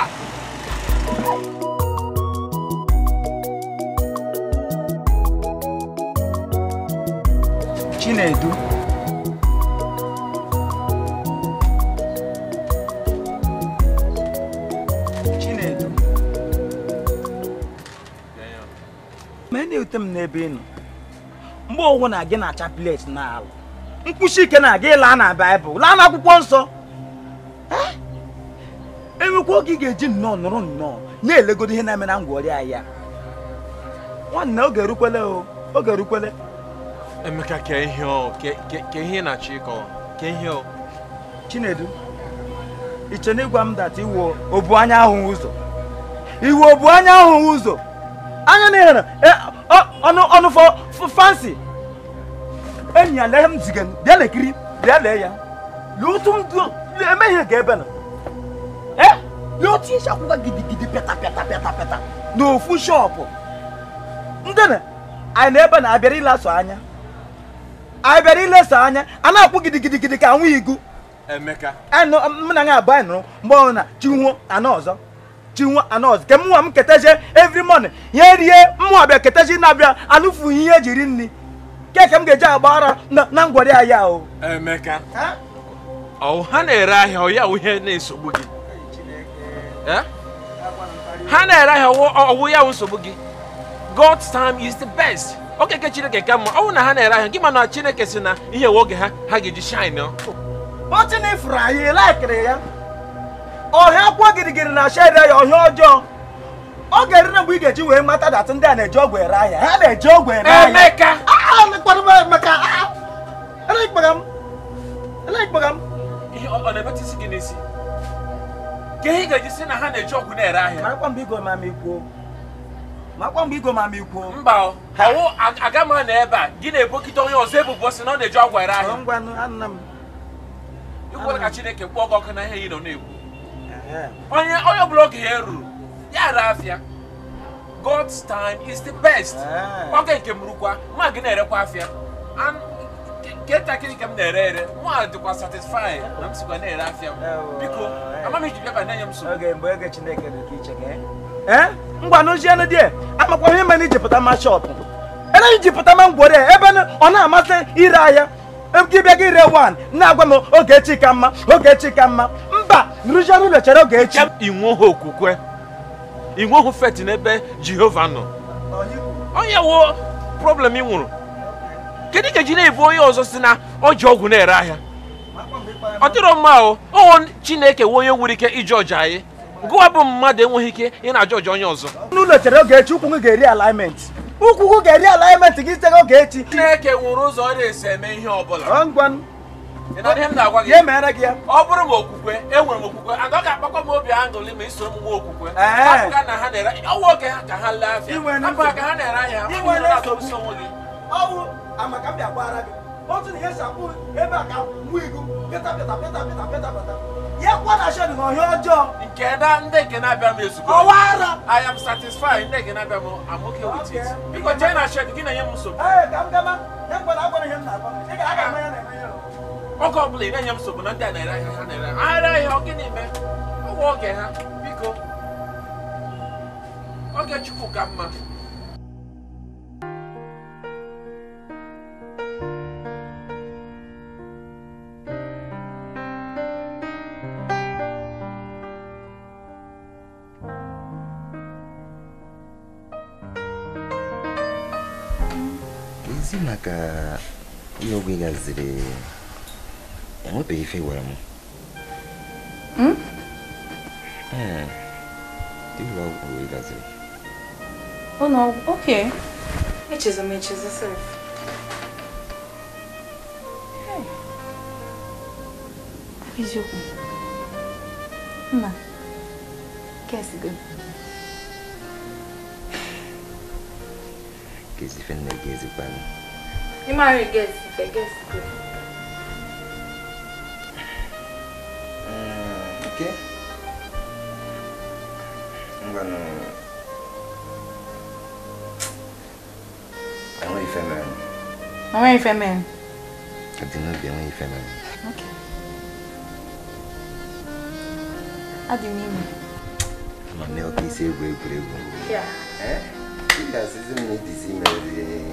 Speaker 2: ọ dị
Speaker 3: Chinedu Chinedu
Speaker 1: ma na-ewute m n'ebe ị nọ mgbe ọgwụ na gị na-acha plet n'ala mkpuchi ike na gị laa na Baịbụl laa n'akwụkwọ nsọ enwekwa oge ị ga-eji nnọọ nụrụ nnọọ na-elegodo ihe na-eme na ngwa ọrịa ya nwanne oge erukwele o oge erukwele emeka ke ihe
Speaker 3: o ke ihe na-achọ ke ihe o
Speaker 1: chinedu iche na ịgwa m data iwu obu anya ahụ ụzọ iwu obu anya ahụ ụzọ anya na ihere ọnụ ọnụ fansi enyi ya lee m ziga bịa lekiri bịa lee ya lee otu m emeghe ga ebe na lee otu isi gidigidi pịata pịata n'ofu shọpụ ndị na ebe na anya anya a na-akwụ gidigidigidi ka igu emeka e mụ na ya abụ anyị mgbe na ke mụnwa m ketazie every morning rie mụnwa bịa na-abịa anụfughị ihe ejiri nri keke m ga-eji agba ara na o emeka ọ ha na-ere ahịa ọ ya ihe na Eh? ha na-ere ahịa ọwụ ya nsogbu gị God's time is the best okeke chineke ka mma ọ na ha na-ere ahịa gị mana chineke si na ihe nwe oge ha ha ga-eji shine ọtịnifụrụ anyị laikiri ya ọhịa kwa girigiri na ya ọhịa ọjọọ ọ ga mgbe ị ga-eji wee mata ndị a na-eji ọgwụ ere ahịa ha na-eji ahịa ka ihe ga-eji si na ha na-eji ọgwụ na-ere ahịa makwa mgbe igo ma m ikwuo makwa mgbe igo ma m ikwuo mba ọwụ aga m na ebe a gị na-ebokite onye ọzọ ebubo si na ọ na-eji ọgwụ ere ahịa ikwere ka chineke kpọọ gị ọkụ na ihe ị nọ na-ekwu onye onye ọbụla oge ya ruru ya re afịa God's time is the best ọ ga nke mụrụkwa mma gị na-erekwa afịa nke ntakịrị nke m na-ere ere nwa dịkwa satisfai na m sikwa na-ere e afịa m biko eh. amaghị iji bịaba na-enye m nsogbu eh? ngwanụjienụ di amakwa ihe mere iji pụta ma shop ere iji pụta ma ngwere ebe ọ na-amasị ire ahịa gị bịa gị ree wan na-agwa m oge echi ka ma oge echi ka ma mba nrụjianụ ụlọ chere oge echi inweghị okwukwe inweghị feti n'ebe jehova nọ onye wo problem ị nwụrụ kedu nkeji na-ebu onye ọzọ si na ọ ji ọgwụ na-ere ahịa ọ dịrọ mma o ọwụ chineke nwe onye nwere ike iji ọja anyị gụwa bụ mmadụ enweghị ike ị na-ajọ ọja onye ọzọ n'ụlọ oge echi ụkwụ ga-eri alignment ụkwụ gị ga-eri alignment gị site oge echi chineke nwụrụ ụzọ ọ na-esi eme ihe ọ bụla ihe mere gị ya ọ bụrụ m okwukwe enwere m okwukwe agaghị akpakwa m obi aṅụrị ma iso m okwukwe ọwụ oge ha ka ha lee afịa ka ha na-ere ahịa amaka m bịa gbara gị otu na ihe si akwụ ebe a ka nwa igu pịta pịta pịta pịta pịta pịta ya kwana shedụ na ọhịa ọjọọ nke na ndị nke na-abịa m ezugbo ọwa ara i am satisfied ndị nke na-abịa m am okay with it biko jee na shed gị na-enye m nsogbu Ee ka m gama ya mgbana agwara ihe m na-agwa ị ga-aga eme ah. na-eme ya oge ọbụla bụla ị na-enye m nsogbu na ndị a na-ere ahịa ha na-ere ahịa ahịa ọ gịnị mee ọgwụ oge ha biko oge chukwu ka mma
Speaker 3: suna ka yogi gazire enwepe ife gwara m ịlụ ọgwụ yogi gazire
Speaker 5: ọ na ọgwụ oke echezọ m echezọ sir eziokwu nna kesi que
Speaker 3: kesi ife que gị ezikwanụ
Speaker 5: You ní máa rìn I ìfẹ́ gẹ̀ẹ́sì pé.
Speaker 3: ike ngbanu àwọn ìfẹ́ mẹ́rin.
Speaker 5: àwọn ìfẹ́ mẹ́rin.
Speaker 3: àdínú bí àwọn ìfẹ́ mẹ́rin. okay. adìmí mi. àmọ́ ní ọkì sí egwu egwuregwu. yà. ẹ́ kí ni àṣìṣe mi ti sí mẹ́rin.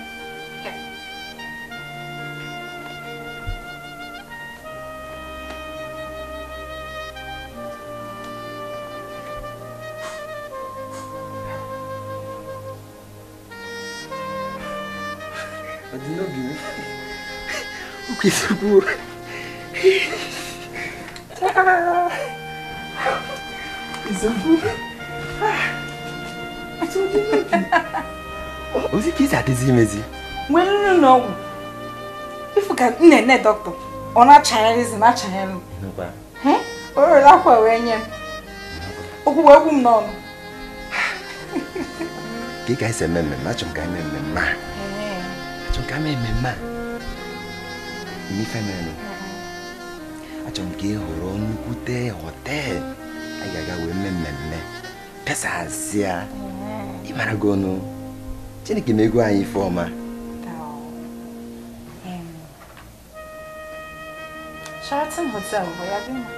Speaker 3: kwesị kwuru ozi ka isi adịzi imezi
Speaker 5: nwee nri na ọgwụ ifu ka m na-ene dọkịta ọ na
Speaker 3: mi family achọ m ka ị hụrụ nnukwu a ga-aga wee mee mmemme pesazia ịmara gị ọnụ chineke na-ego anyị ife ọma
Speaker 5: Sheraton Hotel, vou lá ver mais.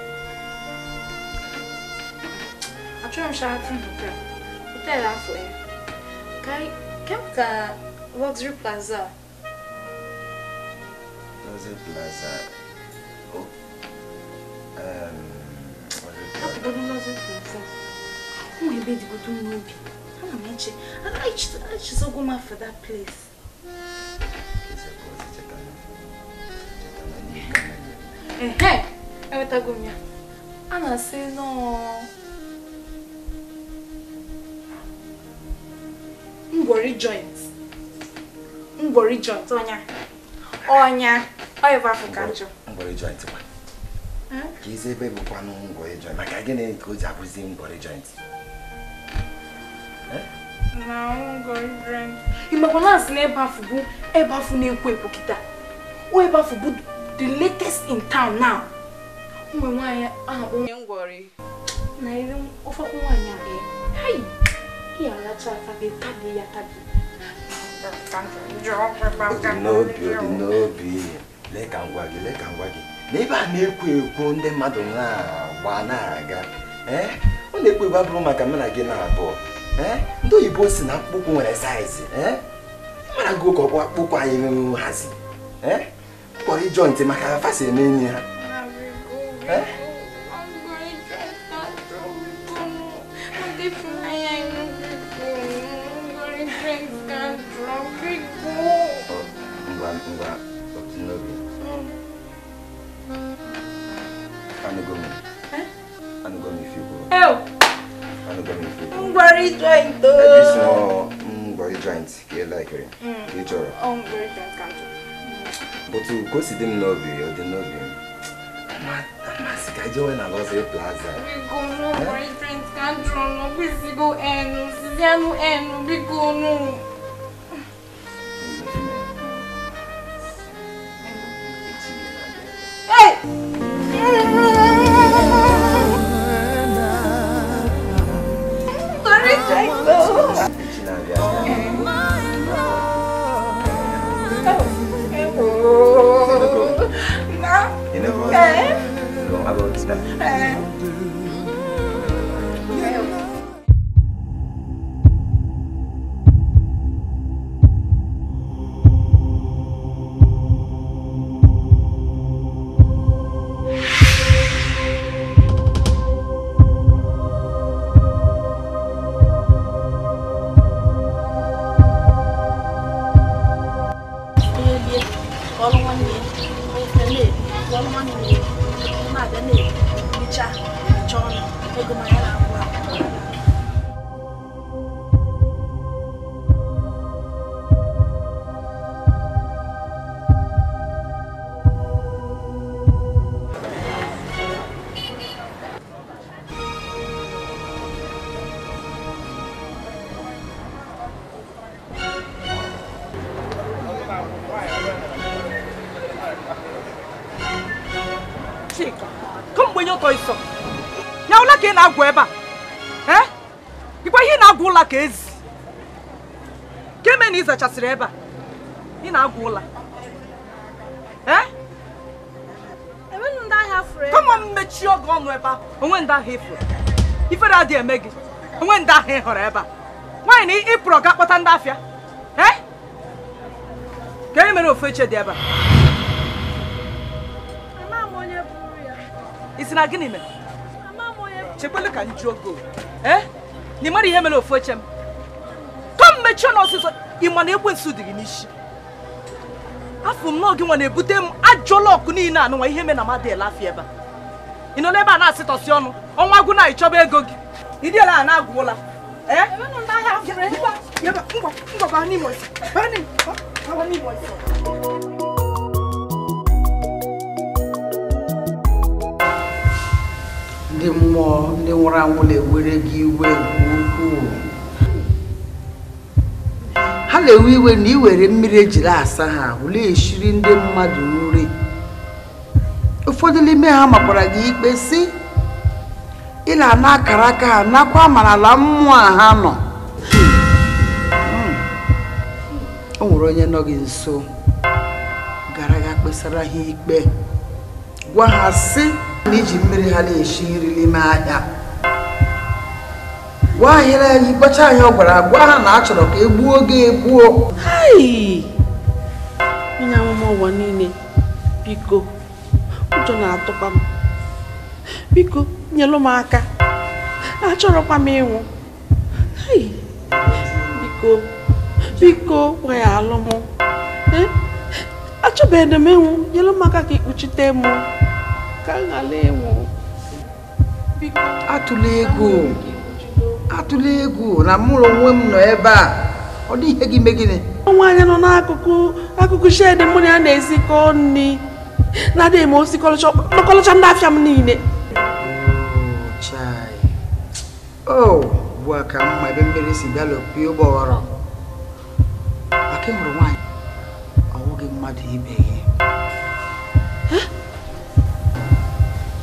Speaker 5: Achei um Sheraton Hotel. Hotel lá foi. Cai, que é o Luxury Plaza?
Speaker 3: was it Plaza? Oh, um, was it Plaza?
Speaker 5: Bunu nasıl kılsın? Ama ebe di kutu eu Ama meçe. Ama hiç hiç zoguma for that place. eu evet agum ya. Ana eu no. Ngwori joint. Ngwori joint, onya. Onya. Ọ bụ afọ hm? ka njọ.
Speaker 3: ebe bụkwanụ ngwọrọ joint maka gịnị ka o ji abụzi ngwọrọ joint? Hm?
Speaker 5: Na na ịbafu bụ ịbafu na-ekwo ekwo kịta. O bụ the latest in town now. Ụmụ onye ngwọrị. Na iri
Speaker 3: lee ka ngwa gị lee ka ngwa gị na ebe a na-ekwo ekwo ndị mmadụ na-agba na-aga eh? ọ na-ekwo ekwo abụrụ maka mụ na gị na-abụọ eh? ndị oyibo si na akpụkpọ nwere saizi eh? mara gị ụka ọkwa akpụkpọ anyị hazi mkpọrọ ịjọ ntị maka afasi eme enyi ha ngwa ngwa anugami fi kuro. ẹ o. anugami fi kuro. ngbari joint o. ẹbí sọ ngbari joint kì í láìkiri mm. kì í jọrọ.
Speaker 5: ọ ngbari joint kan jọ.
Speaker 3: bùtù kò sì dín nọọbì ọdí nọọbì masika jẹ́ We go no bíkọ́
Speaker 5: nù ngbari joint kan jọ nù bí sigo ẹnu sísẹ́nu ẹnu bíkọ́ nù.
Speaker 1: zachasịrị ebe a ị na-agwụ ụla kama mmechi oge ọnụ ebe a onwe ndị ahụ ifuru ifere adịghị eme gị onwe ndị ahụ ị ebe a nwaanyị ịpụrụ ga kpọta ndị afịa eh? ka e ofu eche dị ebe a na gịnị mere chekwele ka ka eh? mmechi ọnụ ị ma na ekwensu dị gị n'isi afọ m n'oge nwa na-ebute m ajụọla ọkụ niile a nụnwa ihe me na mmadụ elafi ebe a ị nọ n'ebe a na-asịtọsị ọnụ ọnwa gwụ na ịchọba ego gị ịdịela a na-agwụla ndị mmụọ ndị nwụrụ anwụ na-ewere gị iwe nke ukwuu na-ewe iwe na were mmiri ejiri asa ha ụlọ na ndị mmadụ nri ụfọdụ n'ime ha makwara gị ikpe si ịla na akara aka ha nakwa ma n'ala mmụọ ha nọ hmm. o nwere onye nọ gị nso gara ga kpesara ha ikpe gwa ha si na iji mmiri ha na-eshi nri n'ime ahịa gwa anyị na anyị kpacha anyị ọgwara gwa ha na achọrọ ka egbuo oge egbuo
Speaker 2: onye amụma ụwa niile biko ụjọ na-atụkwa
Speaker 1: m biko nyelụ m aka achọrọkwa m ịnwụ biko biko weghaalụ m e? achọbeghị m ịnwụ nyelụ m aka ka ikpuchite m ka m ghara ịnwụ atụla ego atụla egwu na mụrụ onwe m nọ ebe a ọ dị ihe gị mee gịnị nwaanyị nọ n'akụkụ akụkụ shed mụ na ya na-esikọ nri na-adịghị m osi ndị afịa m niile o bụ ka mma ebe mmiri si bịa lopie ụgbọghọrọ maka ịhụrụ nwaanyị ọnwụghị mmadụ ibe gị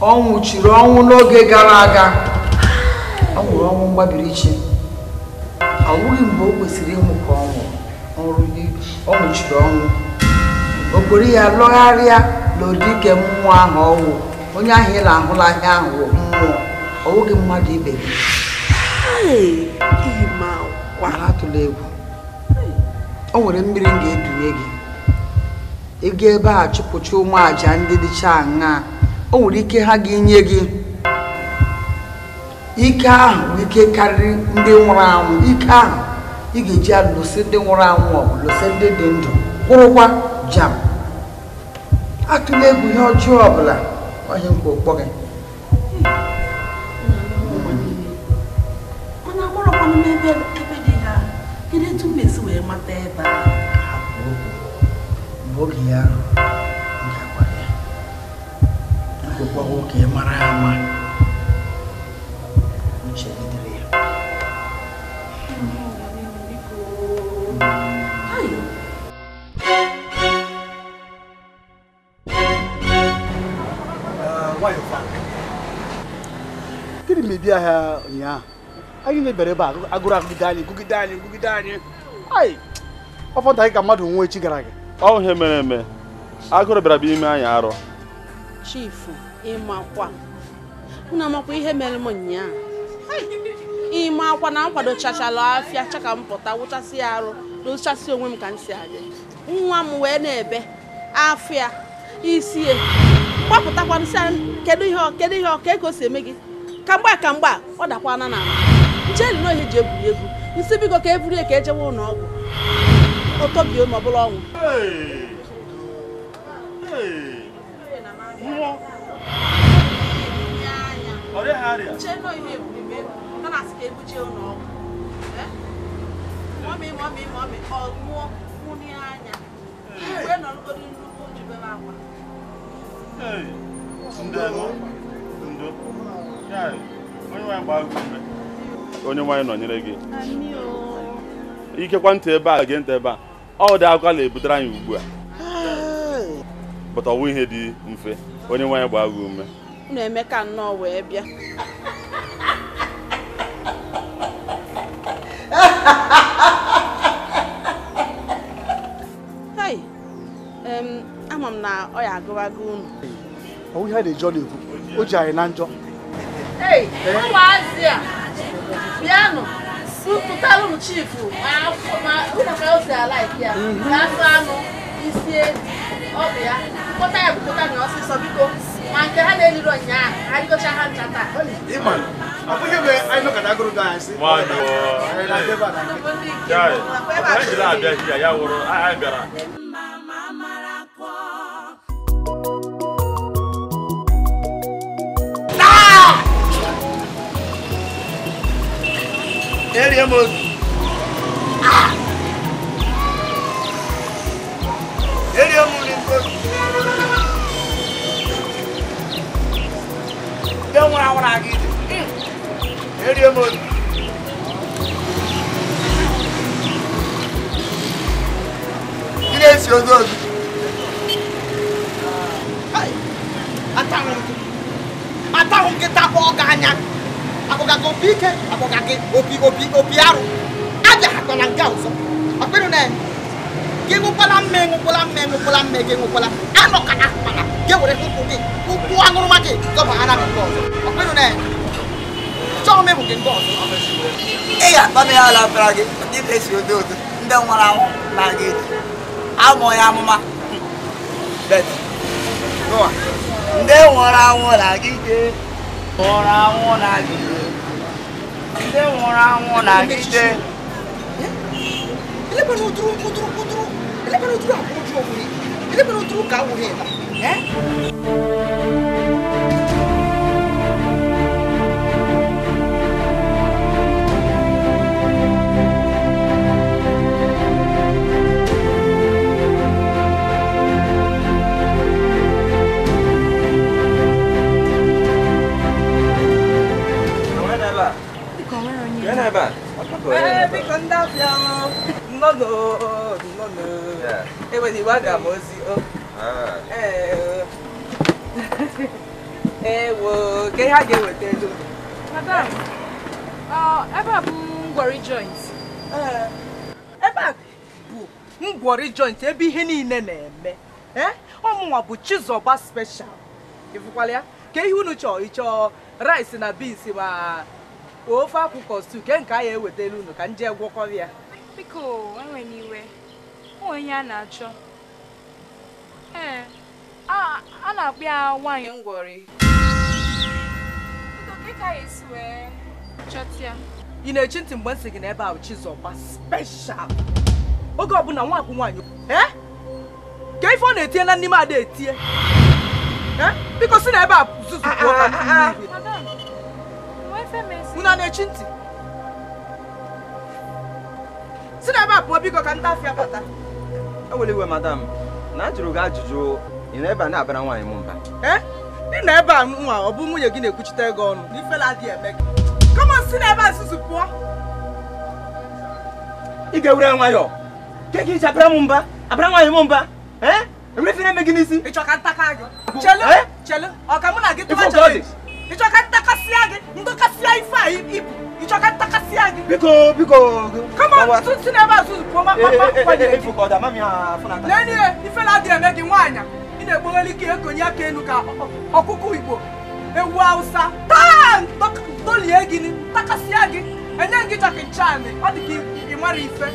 Speaker 1: ọ nwụchiri ọnwụ n'oge gara aga ọ nwụrụ ọnwụ mgbabiri iche ọ mgbe o kwesịrị ịnwụ ka ọ nwụrụ ọ nwụchiri ọnwụ okpori ya lọgharịa n'ụdị ike mmụọ ahụ ọwụ onye ahụ ị na-ahụla ahịa ahụ mmụọ ọwụghị mmadụ ibe gị atụla egwu o nwere mmiri m ga-edunye gị ego ebe a chụpụcha ụmụ ndị dịcha aṅaa o nwere ike ha ga-enye gị ike ahụ ike karịrị ndị nwụrụ anwụ ike ahụ ị ga-eji alụsị ndị nwụrụ anwụ ọgụ lụsị ndị dị ndụ kwụrụkwa jam atụla egwu ihe ọjọọ ọbụla onye nkwa okpọ gị oge ya ga-agwa ya nwoke mara ama gịnị mebie ahịa ụnyaahụ anyị na-ebere ebe a agụrụ agụgide anyị gụgide anyị gụgide anyị anyị ọfọdụ anyị ka mmadụ nwee echi gara aga ọ ihe mere eme agụrụ bịara bụ ime anyị arọ chifu
Speaker 2: ịmakwa unu amakwa ihe mere m nyaa ịma ịmakwa na nkwado kwadochachala afịa chaka m pụta wụchasị ya arụ n'ụchasị onwe m ka m si adị nwa m wee na-ebe afọ ya isi ya gbapụtakwa nsị kedu ihe kedu ihe ọka ego si eme gị ka mgba ka mgba ọ dakwana na ala njeli na ohe ji eburi ebu nsị bigo ka eburie ka ejewe ụlọ ọgwụ otobie ma ọ bụla ọnwụ ọ dịghị arịa. Nche nọ ihe ebube ebe, ọ na-asị ka ebuje ụlọ
Speaker 1: ọgwụ. ọmị ọmị ọmị ọ mụọ mụnị anya igwe nọ n'okporo nnukwu njibere akwa onye nwaanyị nọnyere gị ikekwa ntị ebe a gị ntị ebe a ọ dị akụkọ na-ebutere anyị ugbu a pụta ọwụ ihe dị mfe onye nwaanyị gbaa gị ume
Speaker 2: unu eme ka nnọọ wee bịa (laughs) m na ọ ya agụwago unu
Speaker 1: ọwụ ihe na-eji ọ na-ekwu o ji anyị na njọ
Speaker 2: ụmụazị a bịanụ pụtara ụmụ chifu ụmụ ka o si ala ike ya na-asụ mhm. anụ isi ọ bụ ya kpọta ya bụkọta na ọsịsọ biko ma nke ha na-eliri ụnyaahụ anyị gocha ha ncha taa Nwaanyị
Speaker 1: ọ, ndị nke abịa ya wụrụ anyị bịara Ele é moço.
Speaker 4: Ele é moço. Deu uma hora aqui. Ele é moço. morto.
Speaker 1: Silencioso. Ai, ataca um, ataca um que tá bom ganhar. akpọga gị akpọga gị opi opi opi arụ abịaghakwana nke ọzọ na gị ṅụkwala mme ṅụkwala mme ṅụkwala mme gị ṅụkwala anọ ka akpala gị were gị ụkwụ aṅụrụma gị dọbaghara na nke ọzọ na chọọ mebụ gị nke ọzọ ga ya gị ndị na odo odo ndị anwụ na gị amụ amụma ndị nwụrụ anwụ na gị nwụrụ anwụ na gị ṣé wọn ra wọn làgídé. ẹlẹ́gbẹ̀ẹ́ ló dúró kó dúró kó dúró ẹlẹ́gbẹ̀ẹ́ ló dúró àbúrò dúró wòye ẹlẹ́gbẹ̀ẹ́ ló dúró ká wòye ẹ̀ta.
Speaker 3: ebe a ndị afịa
Speaker 2: nnọnụ nnọnụ enweghị aga m ozi madam ebe a bụ
Speaker 1: ngwọrị joint ebe e a bụ ngwọrị ebe ihe niile na-eme ọmụnwa bụ chizọba special ịfụkwala ka ihe unu chọọ rice na beans ofe akwụkwọ stu ke nke a ya ewetara unu ka m jee gwọkọrọ ya
Speaker 5: biko enwe n'iwe onwe ihe a na-achọ ee a na-akpọ ya nwaanyị ngwọrị
Speaker 1: ị na-echi ntị mgbe m sị gị na ebe ahụ Chizọba special oge ọbụla nwakwụ nwaanyị Ee, ka ife ọ na-etinye na n'ime ada etinye e? biko si na ebe a zuzu unu na-echi ntị si na ebe a pụọ biko ka ntafịa bata
Speaker 3: ewere iwe madam na ajụrụ gị ajụjụ ị na ebe a na-abara nwaanyị m mba eh? ị na ebe a nwa ọ bụ nwunye gị na-ekwuchite ego ọnụ
Speaker 1: n'ifela adị eme gị kama si na ebe a nzuzu pụọ ị ga-ewere nwayọọ ke gị iji abara m mba abara nwaanyị m mba ee eh? emefe na-eme gị n'isi ịchọ ka ntaka gị eh? chelu chelu ọ ka mụ na gị tụwa chọrọ ichokatakasia gị ndọkasịa ife a ibu ichokatakasia gị
Speaker 3: biko biko
Speaker 1: kama tutu na ebe a tutu pụọ nene ife na adị eme gị nwaanyị ị na-ekpogheli ike ekonye aka elu ka ọkụkọ igbo ewu hausa taa dolie gị takasịa gị enye gị chọkị nchaanị e. ọ dị ka ị mara ife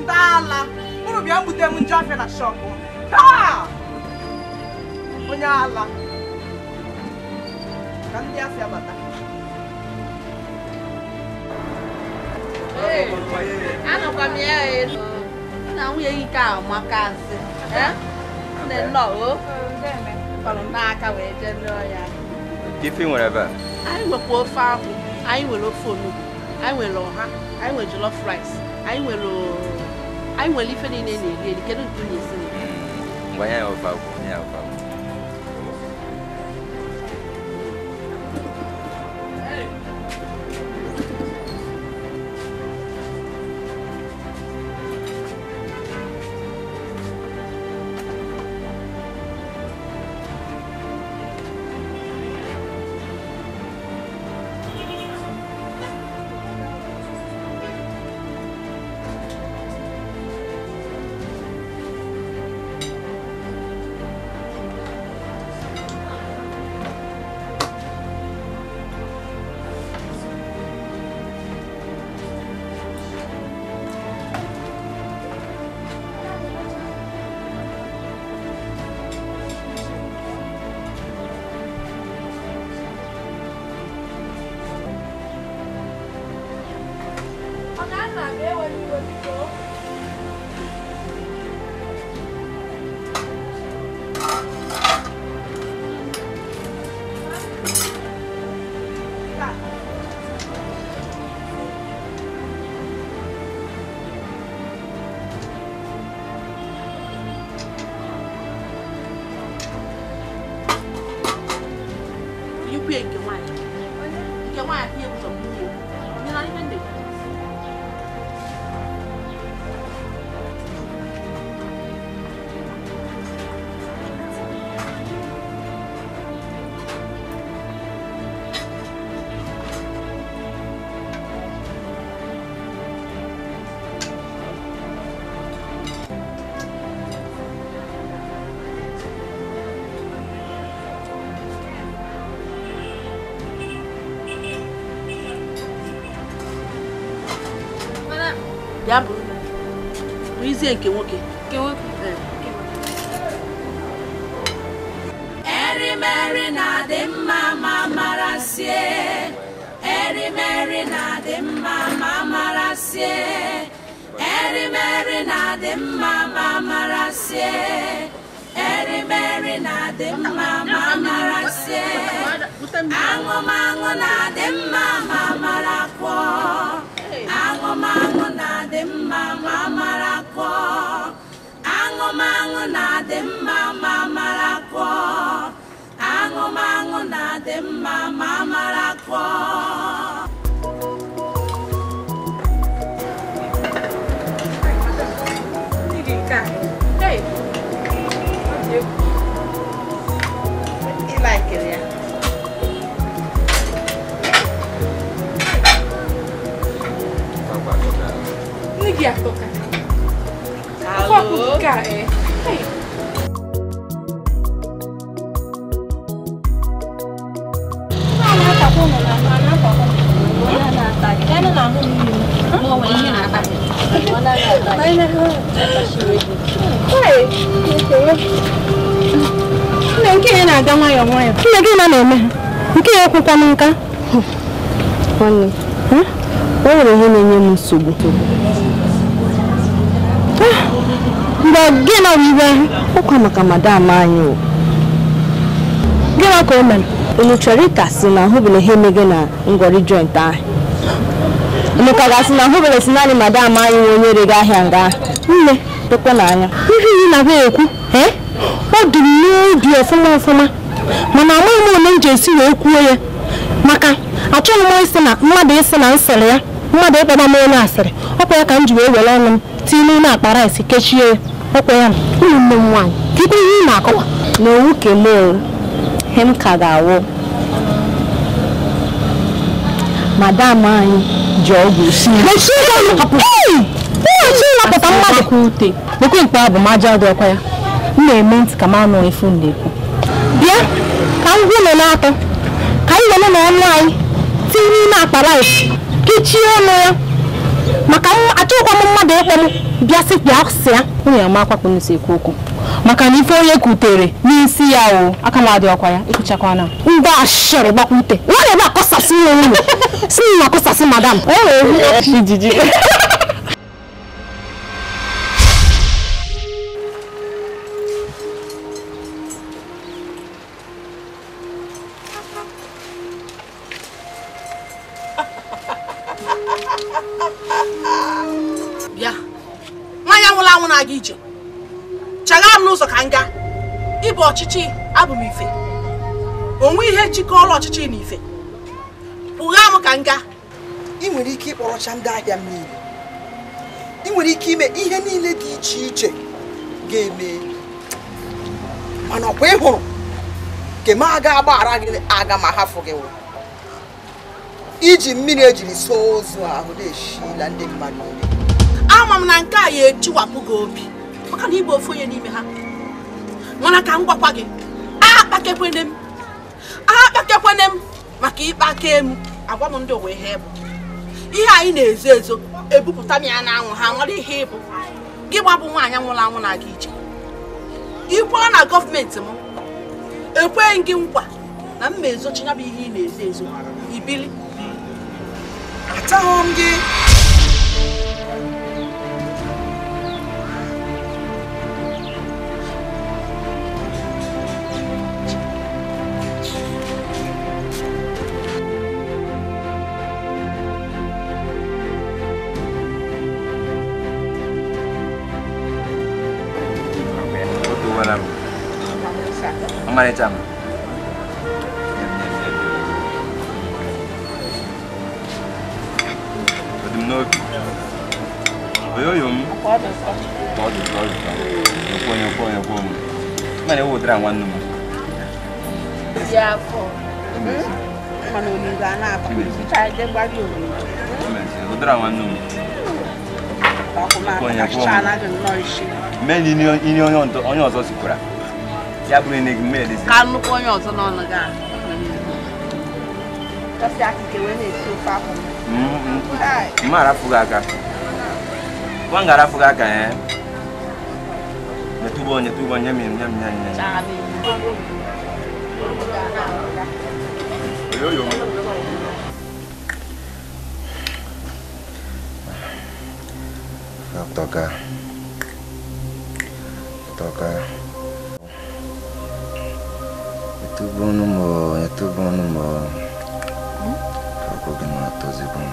Speaker 1: ndị ala unu bịa mbute m njọ afịa na shọpụ taa onye ala ka ndị afịa
Speaker 4: ya na nwunye gị ka amaka asị nne nnọọ kpọrọ n'aka wee jee
Speaker 3: ife nwere ebe a
Speaker 2: anyị nwekwa ofe ahụ anyị nwere ofe onugbu anyị nwere ọha anyị nwere jollof rice anyị nwere anyị nwere ife niile na-eri eri kedu nke unu esi
Speaker 3: ya ofe ya ofe
Speaker 2: Ezie nke nwoke.
Speaker 4: Erimeri na-adị mma ma mara sie. Erimeri na-adị mma ma mara sie. Erimeri na-adị mma ma mara sie. Erimeri na-adị mma ma mara sie. Aṅụmaṅụ na-adị mma ma mara kwọ. Aṅụmaṅụ na-adị mma ma na-adị mma ma mara kụọ aṅụmaṅụ na-adị mma ma mara
Speaker 2: nke ya na-aga nwayọọ nwayọọ gị na na-eme ha nke ya ekwekwa na nka nwanne o nwere na-enye m nsogbu mgbe gị na iwe ụkwa maka madam anyị o gịnị ka o mere unu chọrọ na ahụbụla ihe na ngwọrị joint ahụ Emeka ga-asị na hụberesi naanị madam anyị onye rere ahịa nga nne dokwe n'anya ihe ị na-abịa ekwu ọ dị m n'obi ọfụma ọfụma mana amaghị m onye m ji esi
Speaker 6: wee kwuo ya maka achọghị m isi na mmadụ isi na nsịrị ya mmadụ ịkpọba
Speaker 5: m
Speaker 2: onye asịrị ọkwa ya ka m ji wee were ọnụ m tinye n'ime akpa rice kechie ya ọkwa ya ụmụnne m nwaanyị kikwe ihe ị na-akọwa na owu kelee m ka ga-awụ madam anyị ji ọgwụ ịlapụta mmadụ ute bekwe mkpa bụ maja dị ọkwa ya m na-eme ntị ka m anụ efu na-ekwu bịa ka m gwụlọ n'atọ ka anyị lele na ọnụ anyị tinye n'ime akpa laif kechie ọnụ ya maka achọghịkwa m mmadụ ịkpọ m bịa si ya sị ya nwunye akwakpụ nsi ekwu okwu maka na ife onye kutere n'isi ya o aka m adị ọkwa ya ịkụchakwana ngwa ashịrị gbakwute nwanyị na-ebe akọsasị nwe ụlọ (laughs) si na akọsasị madam ijiji (laughs)
Speaker 1: ọchịchị abụ m ife onwe ihe jikọrọ ọchịchị na ife pụgha m ka nga ị nwere ike ịkpọrọcha ndị ahịa m niile ị nwere ike ime ihe niile dị iche iche ga-eme mana ọkwa ị hụrụ nke m aga agbaghara gị aga ma hafụ gị iji mmiri ejiri so ozu ahụ na-eshila ndị mmadụ ama m na nke a ya ejiwapụ gị obi maka na ịbụ ofu onye n'ime ha mana ka m gwakwa gị agha
Speaker 2: m m maka ikpe aka emu agwa m ndị owe ihe bụ ihe anyị na-ezo ezo ebupụta m ya n'anwụ ha nwere ihe ịbụ gị gbabụ nwaanyị nwụrụ anwụ na-aga ije ikwu na gọọmenti m ekweghị gị nkwa na mma
Speaker 1: ezochi ya bụ ihe ị na-ezo ezo ibili m gị
Speaker 3: 말했잖아. 어디 넣을 왜요, 용? 빠졌어. 빠졌어, 빠졌어. 여권, 여권, 여권. 나 여기 오더라, 왔는
Speaker 2: 거. 야, 코. 응? mano ni gana pa cha de gba bi o
Speaker 3: ni o dra wan nu
Speaker 4: ba ko ma ka cha na de no isi
Speaker 3: men ni ni onyo onyo ọzọ si kura ya bụrụ na egwu mmiri ka nnukwu
Speaker 4: onye ọzọ n'ọnụ gị
Speaker 3: mma arafụghị aka nwa nga arafụghị aka ya nyetubo nyetubo nye mi nye mi nye Yo yo. Toka, toka. t Muito bom no u amor, muito t u bom no u amor. Fogo que não atoze bom.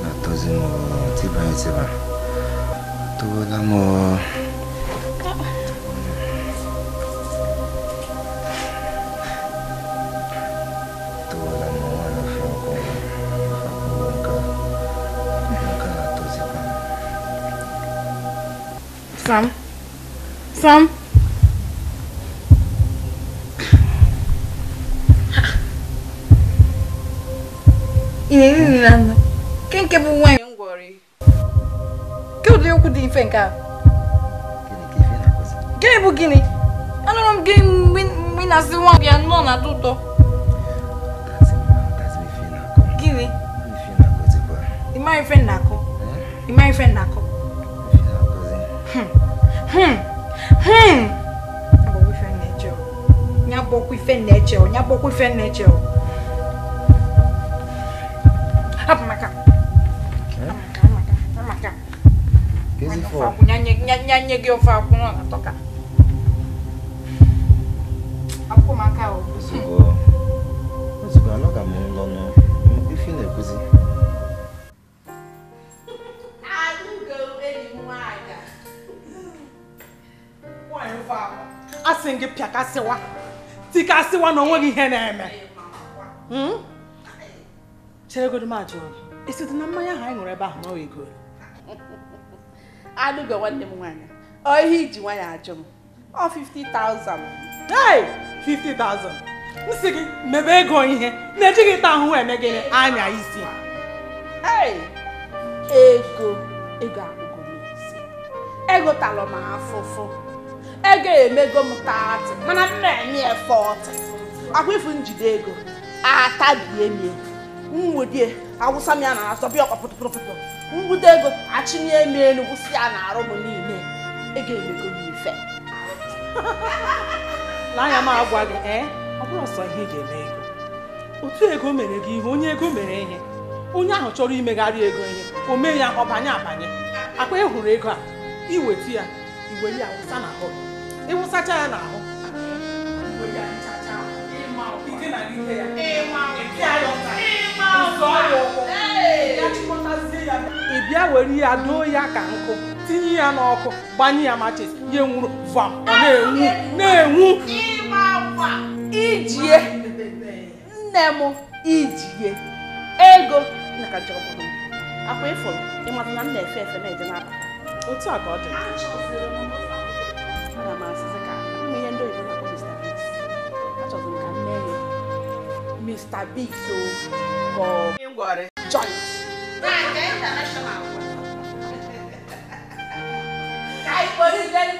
Speaker 3: n Atoze mo, te vai, te vai. t o t u b o amor.
Speaker 5: Sam? Sam? ife nke a gịnị bụ gịnị anụrụ m gị mgbe ị na-asị nwa bịa nọ na-atọ ụtọ gịnị ịma ife na-akụ ịma ife na-akụ nya gbọkwa ife na-eche ọ nya gbọkwa ife na-eche ọ Eu a gị ofe akwụrụ na tọka akwụkwọ m aka ozugbo
Speaker 3: ozugbo anọga m ụlọ n'ife na-ekwuzi
Speaker 1: asị gị pịakasịwa tikasịwa na onweghị ihe na-eme cheregodo m ajụ esi dị na mmanya ahụ anyị ṅụrụ ebe ahụ n'oge goro
Speaker 4: anụgo nwanne m nwaanyị ohe iji nwanyị ajụ m ọ 50,000
Speaker 1: hey 50,000 m sị gị mebe ego ihe na-ejighị taa ahụhụ eme gịnị anya
Speaker 2: isi hey ego ego akwụkwọ m Ego egotalụ m afụfụ ego emego m taatị mana m na-eme efọtị akwa ifu njide ego atabie M nwudie awụsa m ya na asọ bịa ọkpa pụtụpụtụpụtụ Mbute ego achịnye m elu wụsị ya na arụ m niile ego emego m ife na m agwa gị ee ọ bụrụ sọ ihe ị ga-eme ego
Speaker 1: otu ego mere gị ihe onye ego mere ihe onye ahụ chọrọ imegharị ego ihe o mee ya ọbanye abanye akpa ị ego a iweta ya iwe ya wụsa n'ahụ ịwụsacha ya n'ahụ ya ya ị bịa were ya doo ya ka nkụ tinye ya n'ọkụ gbanye ya machis ya nwụrụ ọ na-enwu na-enwu
Speaker 2: ijie nne m ijie ego akwa ịfụrụ ịmata na m na-efe efe na-eje n'aka otu a ka ọ dị
Speaker 1: Mr. Big so for
Speaker 2: Ngore joint. Kai, for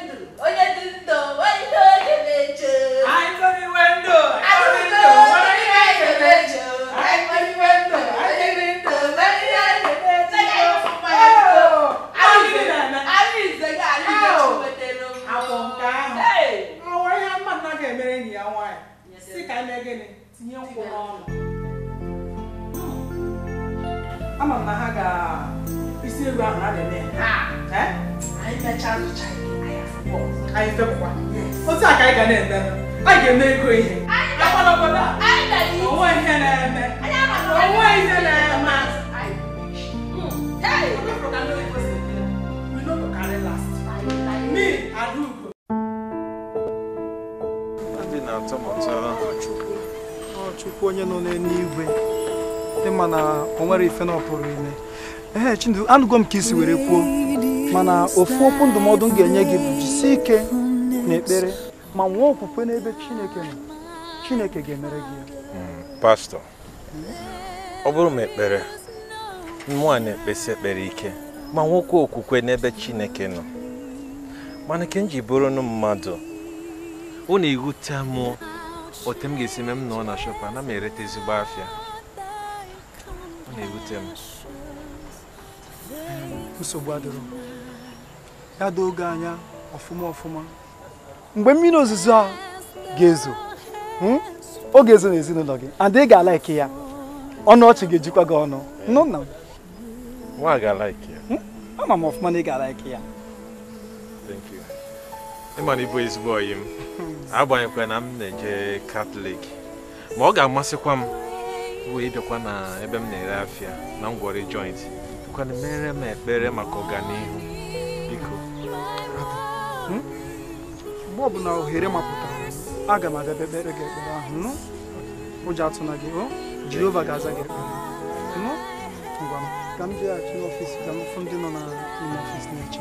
Speaker 1: ife na ọ ime anụgo m ka isi were kwuo mana ofu okwu ndụmọdụ m ga-enye gị bụ jisie ike na ekpere ma nwee okwukwe n'ebe Chineke nọ Chineke ga-emere gị ya
Speaker 3: hmm, pastọ ọ bụrụ m ekpere mmụọ na-ekpesi ekpere ike ma nwoke okwukwe n'ebe Chineke nọ mana ke m ji bụrụ nụ mmadụ ọ na-ewute m otu m ga-esi mee m nọ na shọpa na m ezigbo afịa ọ na-ewute m
Speaker 1: nsogbu adịrọ ya doo oge anya ọfụma ọfụma mgbe mmiri ozuzo a ga-ezo ọ hmm? ga-ezo n'ezinụlọ gị and ị ga ike ya ọnụ ọchị ga-ejikwa gị ọnụ nụ nna m
Speaker 3: nwa ga-alaiki ya
Speaker 1: hmm? ama m ọfụma na ị ga-alaiki ya
Speaker 3: ịma na ịbụ ezigbo oyi m hmm. agbanyekwa na m na-eje katọlik ma ọ ga-amasịkwa m wee bịakwa na ebe m na-ere afịa na ngwọrị joint bịakwana mere m ekpere maka ọganihu biko
Speaker 1: hmm? mgbe ọbụla ohere mapụtara aga m abịa ekpere gị ekpere ahụ ụjọ hmm? atụna gị jehova ga-aza gị ekpere hmm? ngwa m ka m jeghachi ka m fụ ndị nọ n'ime ọfịs na-eche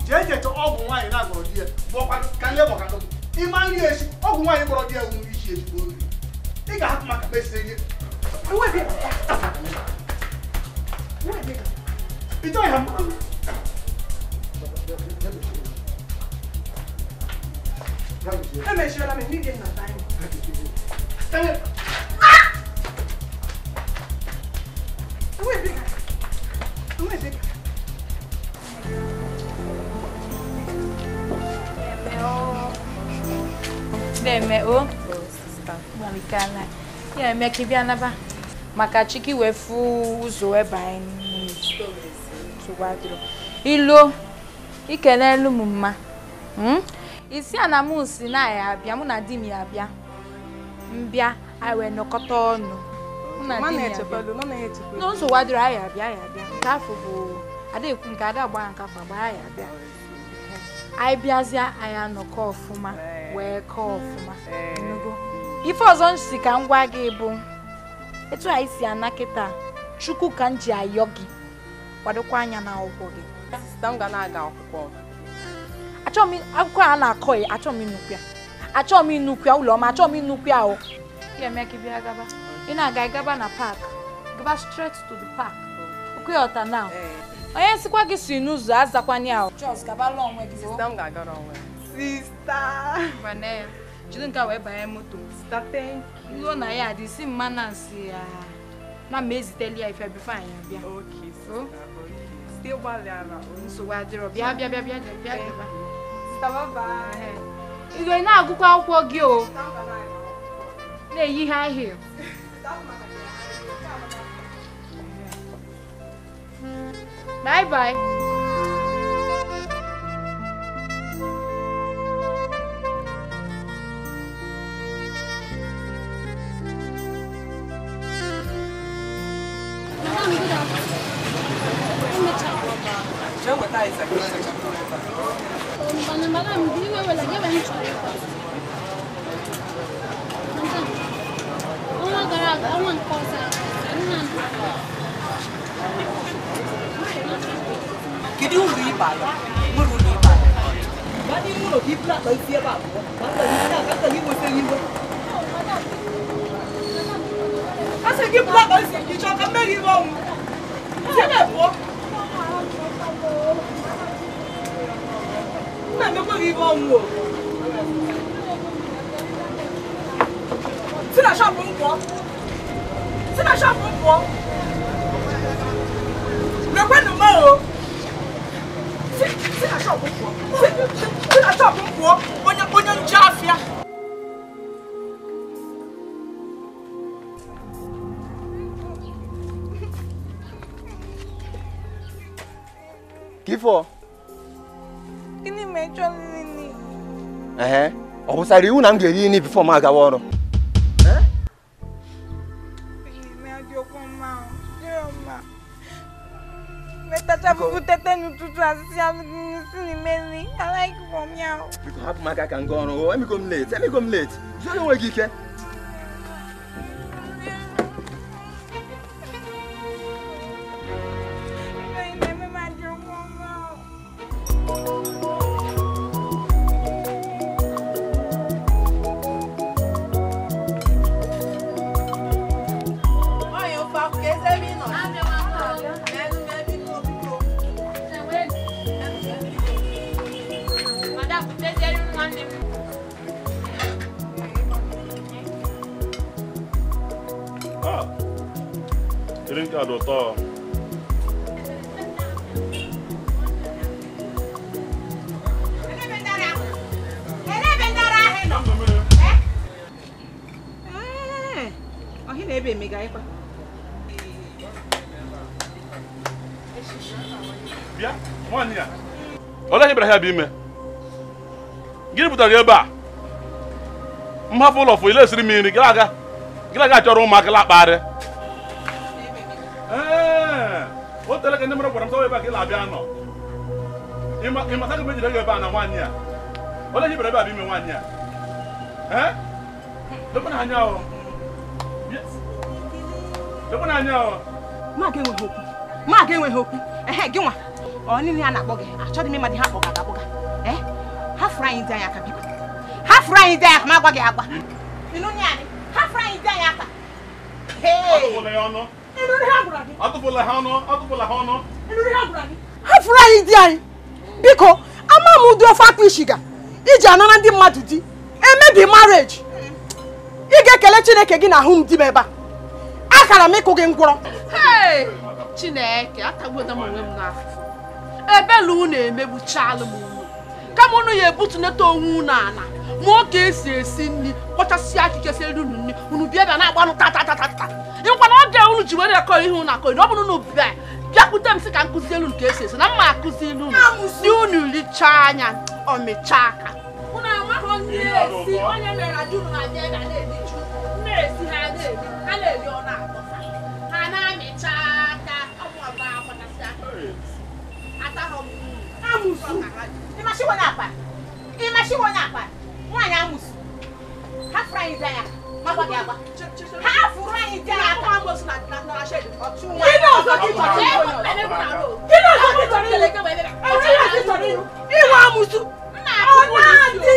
Speaker 1: jeje to go nwaanyị na-agọrọ di ya bụọkwa ka ndị bọka dọgbu ịma nri echi ọgwụ nwaanyị gbọrọ di ya nwụ iji ezigbo nri ị ga-ahapụ maka mesịrị ihe ịchọghị ha mmanụ emechiela m n'ihi nna anyị
Speaker 5: eme o Marikana ya maka chiki ụzọ ikenelu m mma isi a na m na ya abịa mụ na di m ya abịa. mbịa anyị wee nọkọta ọnụ n'ụzọ wadịrị anyị abịa ya abịa nke afọ bụ adekwu nke ada nke afọ ya abịa anyị bịazie anyị anọkọ ọfụma wee kọọ ọfụma ife ọzọ m si ka m gwa gị bụ etu anyị si ana kịta chukwu ka m ji ayọ gị kwadokwa anya na akwụkwọ gị achọọ m akwụkwọ a na-akọ ya achọọ m inukwu ya Achọ m inukwu ya ụlọ ọma achọọ m inukwu ya o ị na-aga gaba na pak gaba straight to the park okwe ọta now onye nsikwa gị si n'ụzọ azakwana ya o Sister. Vanessa, you don't a wee banye moto. Sista, thank you. Ruo na this adị My mma na nsị ya. Na m eziteli ya ife bifo anyị abịa. Okay, sista. Oh. Site gbalịara. Nsogbu adịrọ. Bịa bịa bịa bịa bịa bịa. Sista, bye bye. Ị eh. ga na-agụkwa akwụkwọ gị o. Na-eyi high heel. Bye bye. đi ọnwa gara aga ọnwa nke ọzọ
Speaker 1: kedu uru ịba ya nwere ụlọ ịba ya ndị ụlọ gị bụla akpa isi ebe abụọ ma akpa gị nweta iwe
Speaker 6: asị gị bụla akpa isi
Speaker 1: gị chọọ ka mmeri iwe ọnwụ jebe pụọ Mami, eu corri, vamos. Você não achava um pó? Você não achava um pó? Meu pai não morreu. Você não achava um pó? Você não achava um pó? Onde é que eu já fiz?
Speaker 3: Kifo.
Speaker 5: Gịnị ma ịchọ nri nri?
Speaker 3: Ehe, ọ wụsara iwu na m ga-eri nri bifo m agawa ọrụ? Hapụ m aka ka m gaa ọrụ, emego m late, emego m late, zụrụ enweghị ike.
Speaker 1: ahịa bụ ime gịnị pụtara ebe a mhapụ ụlọ fụ ile esiri m nri gịra aga gịra aga chọrọ ụmụaka lakpagharị o ka ndị mmadụ gwara m sọwa ebe a ka ị na-abịa nọ ịmata ka m ejire gị ebe a na nwaanyị a onye hibere ebe a bụ ime nwaanyị a anya anya
Speaker 2: enweghị okwu enweghị okwu ehe ọ niile a na-akpọ gị achọghị m ịma ha kpọga anyị ndị anyị aka biko hafụrụ anyị ndị anyị aka ma agwa gị agwa ịnụ nye anyị hafụrụ anyị ndị anyị aka
Speaker 1: atụfụla ha ọnụ atụfụla ha ọnụ hafụrụ anyị di anyị biko ama m ụdị ofe akpụ isi ga iji anara ndị mmadụ di emebi marriage ị ga-ekele chineke gị na ahụ m di m ebe a akara m ịkụ gị ngwụrọ
Speaker 4: chineke
Speaker 1: ebe unu ya ebutunata onwe unu ala mụọ ka esi esi nri kpọchasịa akịkesịa elu unu nri unu bịa bịa na-agbanụ tatatatata ta na oge unu ji were akọ ihe unu akọ ọ bụrụ unu bịa bịakwute m sị ka nkụzi elu ka esi esi na mma akụzi ilu e
Speaker 2: si unu richaa anya ọmịchaa aka na ha na na mashiwa n'akpa ị mashiwa n'akpa nwaanyị amụsụ ha fụrụ anyị dị anya makwa gị agba ha fụrụ anyị dị anya aka gịnị ọzọ gị chọrọ ịlụ ịwa amụsụ ọ na-adị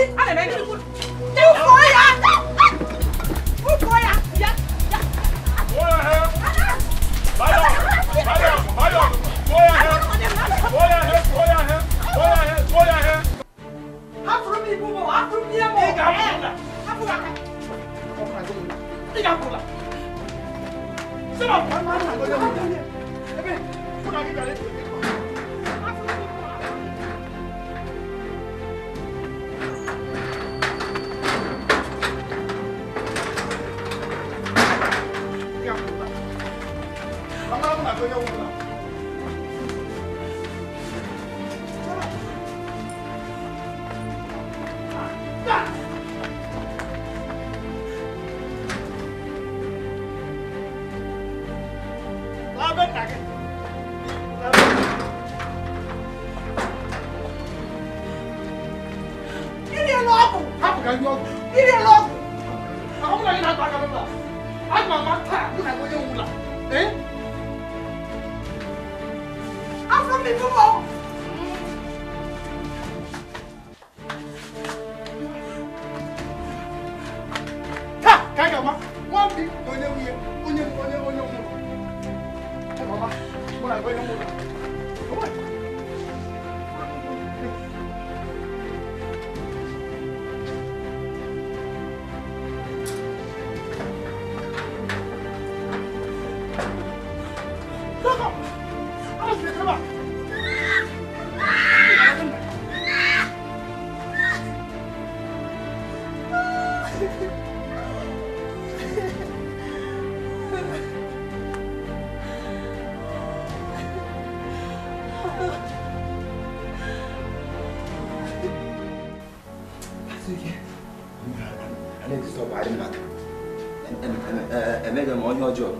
Speaker 3: 要求。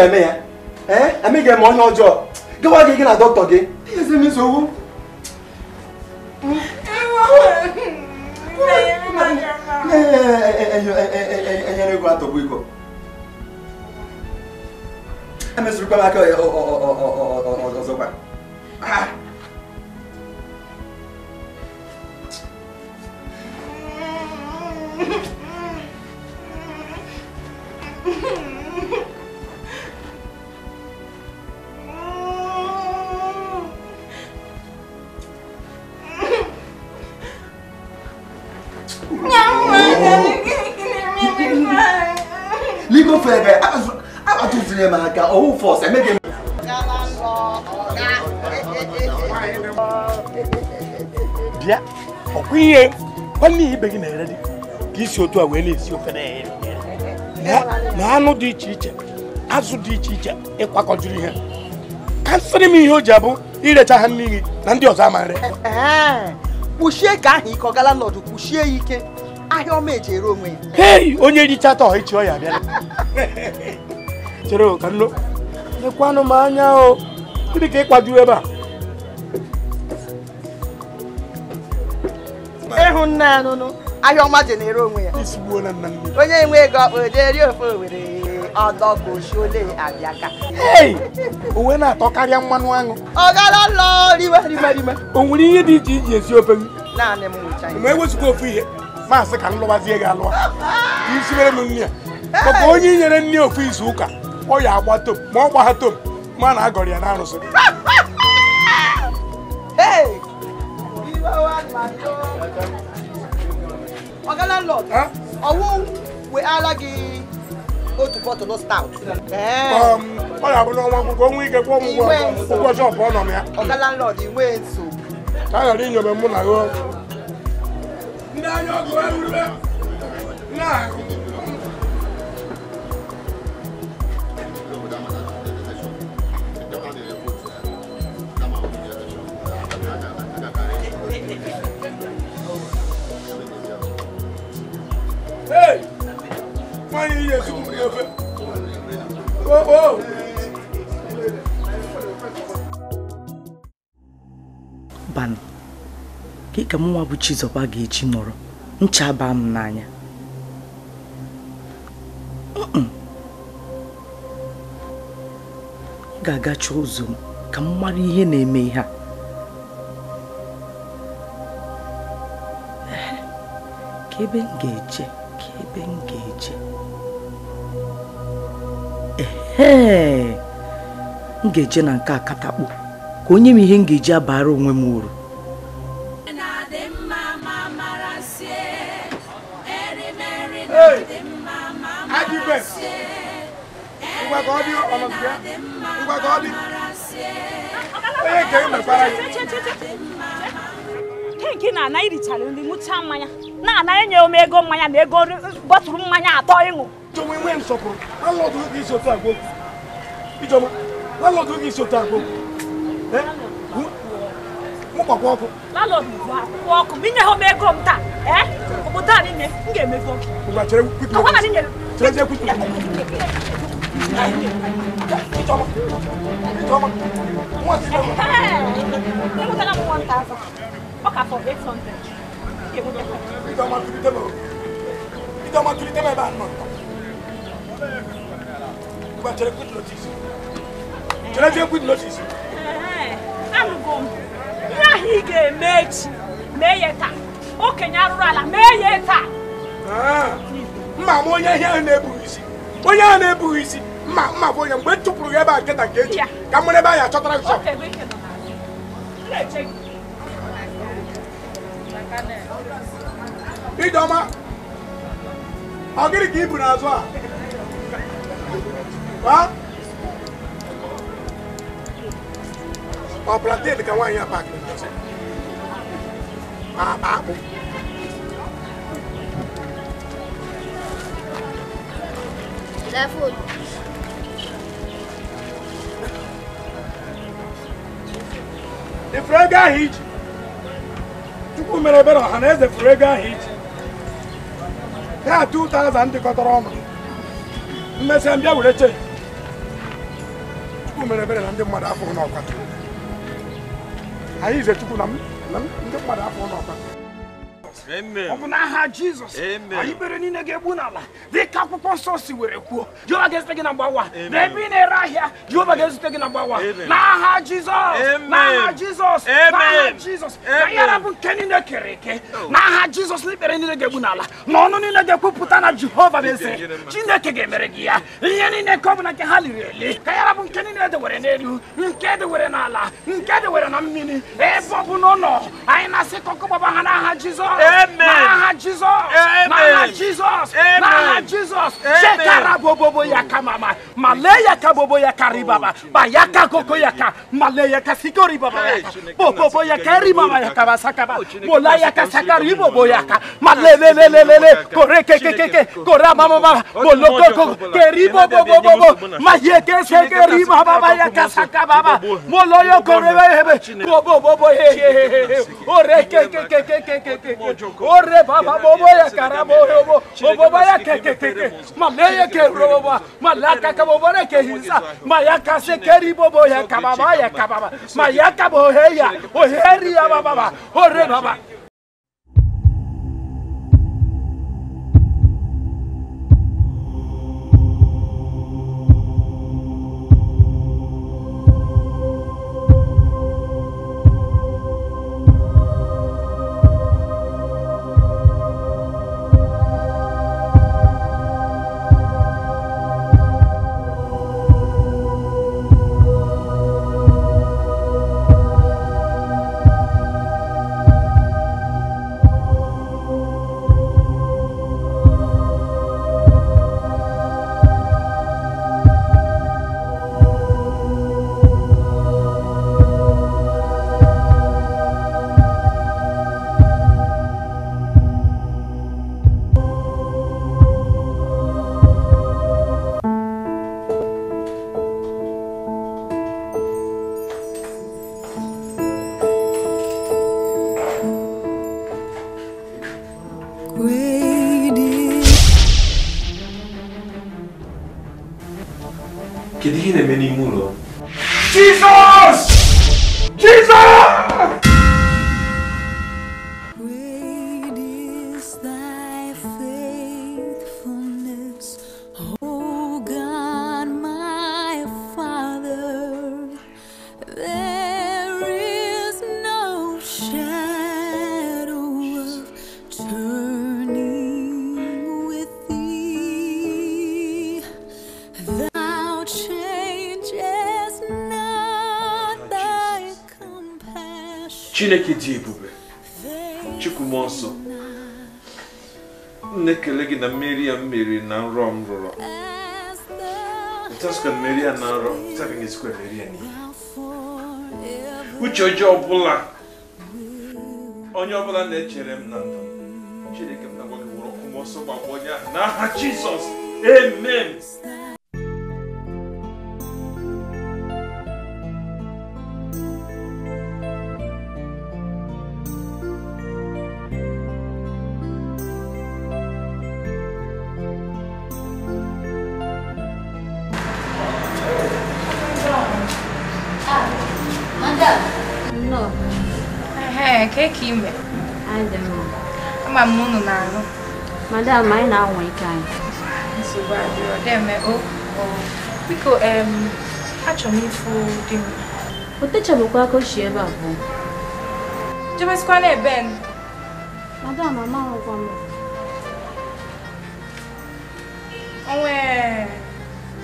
Speaker 3: ka eme ya eme ga-eme onye ọjọọ gịwa gị gị na dọkịta gị ezi m nsogbu enyere ego atọgbu iko emezurukwa m aka ọzọkwa
Speaker 1: n'ihi ibe gị na-ere dị ka isi otu a wee na-esi ofe na anụ dị iche iche azụ dị iche iche ịkwakọjuru ihe ka nsịrị m ihe o ji abụ irecha ha n'iyi na ndị ọzọ ama kpuchie ka ahụ ike ọ gala n'ọdụ kpuchie ya ike ahịa ọma eji ere onwe ya onye richata ọha ichi ọya bịara chere ka lekwanụ m anya o ka ebe a ịhụnna anụnụ ahịa ọma ji na onwe ya onye nwe ego ọkpa ojeri ofe owere ọdọgoshole na-atọ karịa mmanụ aṅụ o nwere ihe dị iche iche esi ofe
Speaker 3: ma ewezụga
Speaker 1: ofu ihe maasị ka m lụwazie gị alụwa (laughs) isi mere m nne ya maka onye nyere nne ofu izu ụka ọ ya agba tom ma ọ gbagha tom ma na-agọrọ ya na arụsị (laughs) Ọ̀gá landlord, ọwọ́ wehara gị otu bọtụlụ stout. Ọ ga-abụ n'ọnwa akwụkwọ nwa ike kwụọ m ụgwọ shọpụ ọ nọ Ọ̀gá landlord, inwe nso. Ka a ghara inyome mụ na gị. Ndị anya ọgụ erurube na-ahụ. nwaanyị ihe ezigbo ka ka bụ Chizọba ga eji nọrọ ncha baa m n'anya m ga-agacha ụzọ m ka m mara ihe na-eme ihe a ka ebe m ga-eje ka ebe m ga-eje ee m ga-eje na nke a katakpo ka onye m ihe m ga-eji abara onwe m uru
Speaker 2: gị na ana irichara nri ṅụcha mmanya na ana enye m ego mmanya na ego bọtụrụ mmanya atọ ịṅụ ọkụ inye ha m ego m taa obodo a niile m ga-emego
Speaker 1: Hey! Hey! Hey!
Speaker 2: Hey! Hey! Hey! ọkà for eight hundred èwo ló kọ. ìjọba
Speaker 1: tuli tẹ́mọ̀ ìjọba tuli tẹ́mọ̀ ẹ bá nọ. gba jẹrẹ quick notice jẹrẹ jẹ quick notice. arụgo m
Speaker 2: ihe ahụ ị ga-eme echi mee ya taa okenye arụrụ ah,
Speaker 1: onye ihe ahụ na-ebughị isi onye ahụ na-ebughị isi mma mma bụ onye mgbe m e chụpụrụ ya ebe a nketa nke echi ka m nwere ebe a ya achọtara Idoma, ọ gịnị ka ibu n'azụ a? Ọ de ka nwaanyị a Ah, ma ah. akpụ. Ifuru ego ahụ iji. Chukwu mere ebere ọha na eze de ego a iji. ha 2000 dịkọtara ọnụ mmesịa mbịa were chee chukwu mere ebere na ndị mmadụ afọ n'ọkwa anyị ize chukwu na ndị mmadụ afọ n'ọkwa ọ bụ n'aha Jizọs anyị kpere niile ga-egbu n'ala dị ka akwụkwọ nsọ si were kwuo Jehova ga-ezute gị na mgbawa na ebe ị na-ere ahịa Jehova ga-ezute gị na mgbawa n'aha Jizọs n'aha Jizọs n'aha Jizọs na bụ nke niile kere eke oh. n'aha Jizọs na ikpere niile ga-egbu n'ala na ọnụ niile ga-ekwupụta na Jehova bụ eze Chineke ga-emere gị ya ihe niile nke ọ bụla nke ha liri eli ka yara bụ nke niile edewere n'elu nke dewere n'ala nke dewere na mmiri ebe ọ bụ n'ụlọ anyị na-asị ka ọkụ gbaba ha n'aha Jizọs Amen. Maha Jesus. Amen. Maha Jesus. Amen. Maha Jesus. Shekara bobobo yaka mama. Malaya ka bobo yaka ribaba. Oh, Bayaka koko yaka. Malaya ka sikori baba yaka. Bobobo yaka ribaba yaka basaka ba. Oh, Mola yaka sakari bobo yaka. Malele le le le le. Kore ke ke ke ke. Kora mama baba. Moloko ko. Keri bobo bobo bobo. Maye ke se keri baba yaka saka baba. Moloyo kore hebe. Bobo bobo he he he he. Ore ke ke ke ke ke ke ke ore baba bobo ya karabo robo bobo ya kekekeke maleye ke robo malaka ka bobo ne ke hinsa mayaka se keri bobo ya kababa ya kababa mayaka bohe ya oheri ya baba ore baba
Speaker 3: Gedihin e minimul
Speaker 1: chineke dị ebube chukwu mmụọ nsọ na-ekele gị na mmeri ya mmeri na nrọ m rụrụ ntasikwa mmeri ya na nrọ ntasikwa esikwa mmeri ya n'ihe uche ọjọọ ọbụla onye ọbụla na-echere m na ndụ chineke m na-agwa gị wụrụ ọkụ mmụọ nsọ gbagbo onye ahụ n'aha jizọs emem.
Speaker 5: inwe ama m unu na-arụ
Speaker 4: madam anyị na-anwa ike anyị
Speaker 5: nsogbu biko achọrọ m ịfụ dị mma o techabụkwa aka ochie ebe abụọ ebe n'ebe
Speaker 2: madam amaghịkwa m
Speaker 5: onwe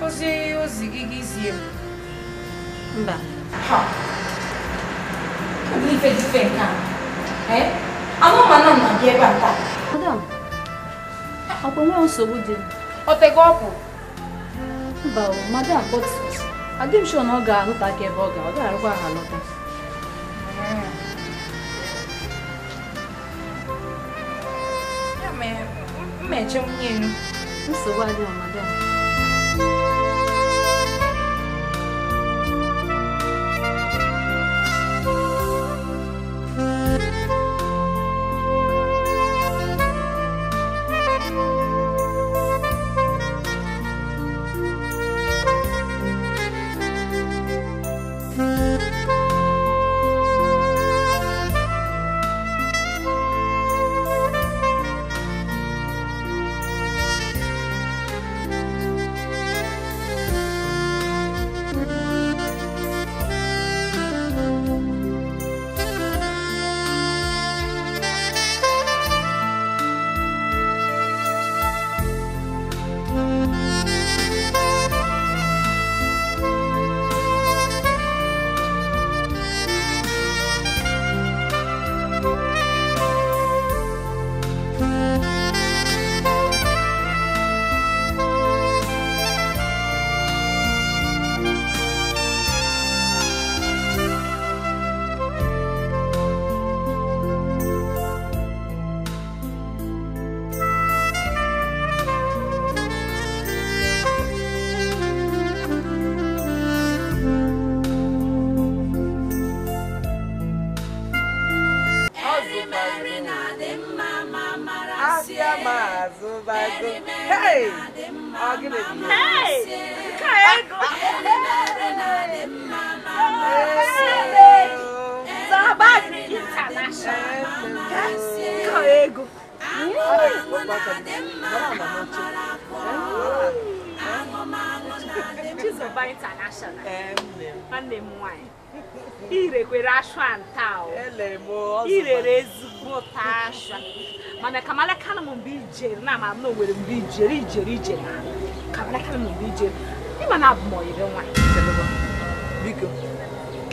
Speaker 5: ozi ozi gị gị zie mba ha ife dị ife nke a Eh? Anoma no na die banta. Madam. Opo nwe nsogbu dị. O tego ọpụ. Mba o, madam, but adị m sure na ọ ga-alụta ka ebe ọ ga, ọ ga-arụkwa ha alọta. Ya mere, mmeche nwunye nsogbu adịghị madam.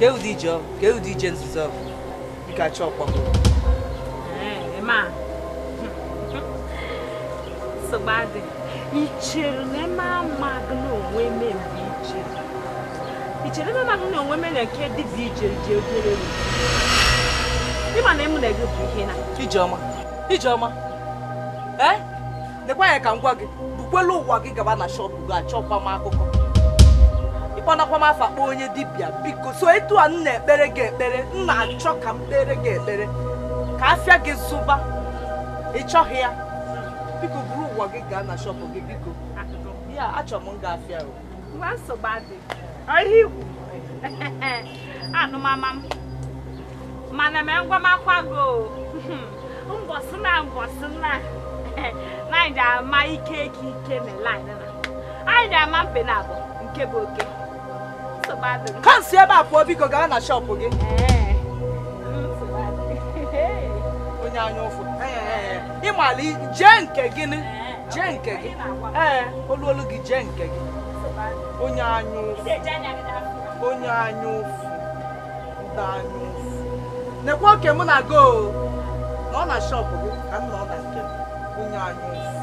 Speaker 1: nke ụdị ije ọ ụdị e ije nzuzo ọ bụ? ọkpọ chọọkwa. na
Speaker 2: Emma amaghị na onwe eme mgbe i chere. na onwe nke ji ogere Ịma na emu na bụ ihe na. Ijeọma. Ee? ka m gwa gị. Bukwelu ụwa gị gaba na shọpụ gị achọkwa m akụkọ.
Speaker 1: mkpanakwa m afọ kpọọ onye dibịa biko so etu a m na-ekpere gị ekpere m na-achọ ka m kpere gị ekpere ka afịa gị zụba ị chọghị ya
Speaker 2: biko buru ụwa gị gaa na shọpụ gị biko ya achọ m afịa (laughs) anụmama mana mee ngwamakwa gị (laughs) mbọsị na mbọsị na (laughs) anyị ga-ama ike ike na anyị ama mpe na nke bụ oke
Speaker 1: kansi ebe a pụọ biko gaa na shọpụ gị onye anya ụfụ jee nke nke gị ee olu olu gị jee nke gị onye anya ụfụ onye anya ụfụ ndị mụ na go na ọ na shọpụ gị ka m na ọ na nke onye
Speaker 3: anya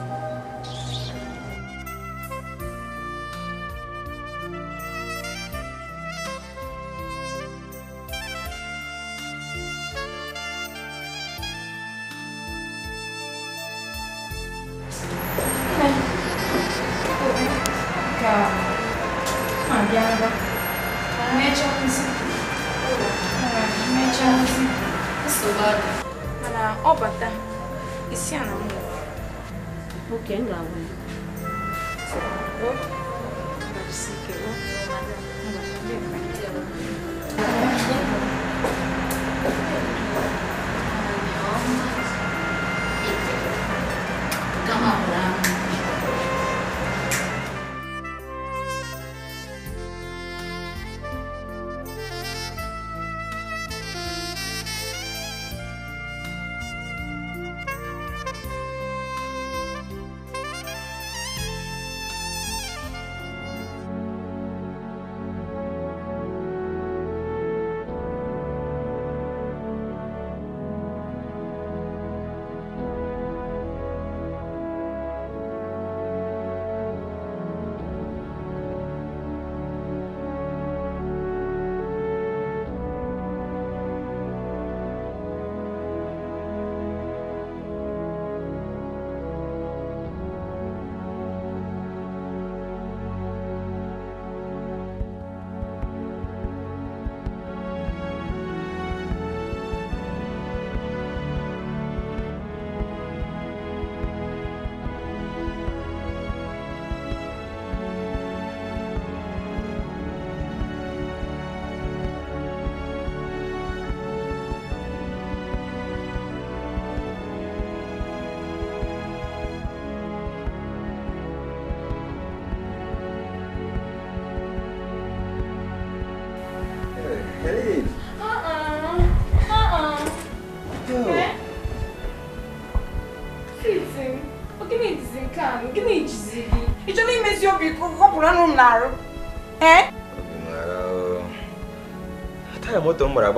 Speaker 5: na-arụ é?
Speaker 3: taya moto m gbara Eu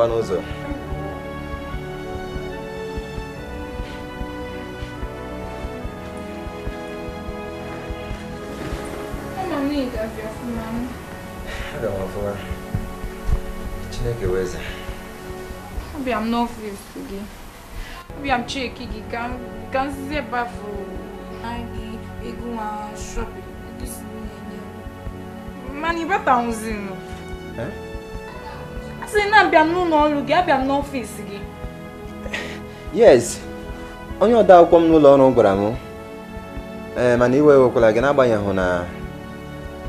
Speaker 3: não vou m afụwa chineke wee eze
Speaker 5: abịa m n'ọfịs gị Eu não vou gị ka nzizi ebe afụ gị ịgụ nwa shọpịn mmanụ não ka nwụzi nụ a sị no abịa n'ụlọ ọrụ gị abịa n'ọfịs
Speaker 6: gị
Speaker 3: yes onye ọda akwụkwọ m n'ụlọ ọrụ gwara m ee mana iwe ewekwala gị n'agbanyeghị na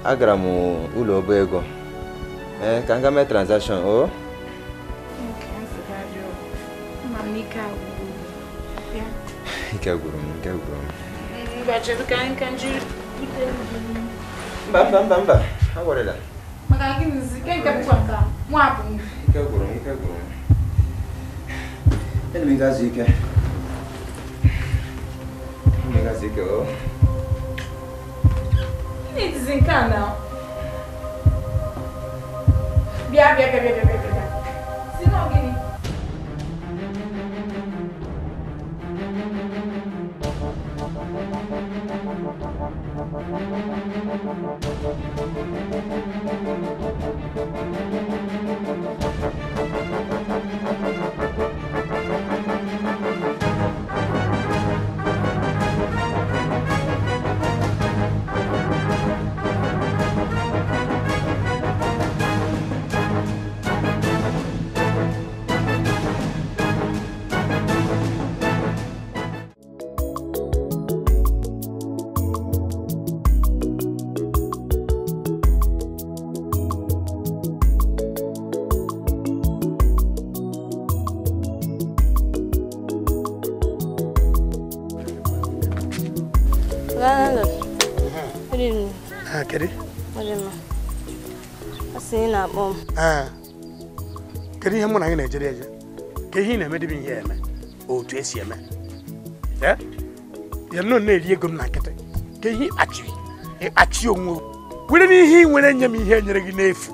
Speaker 3: agara m ụlọ ọba ego ee ka m gaa mee tranzakshọn o ike gwụrụ m ike gwụrụ
Speaker 5: m
Speaker 3: mba mba mba agorela lá,
Speaker 5: mas ke ngebukwaka mwapho
Speaker 3: ke guru ke guru elingazi ke elingazi é o
Speaker 5: nizinkana bia bia bia bia bia
Speaker 1: ee eh. kedu ihe mụ na gị na-ejere eje ka ihe ị na-emedebe ihe eme otu esi eme eh? ya nọ na-eri ego m na nkịtị ka ihe ịkpachiri ịkpachi onwe were n'ihe ị nwere nye m ihe enyere gị n'efu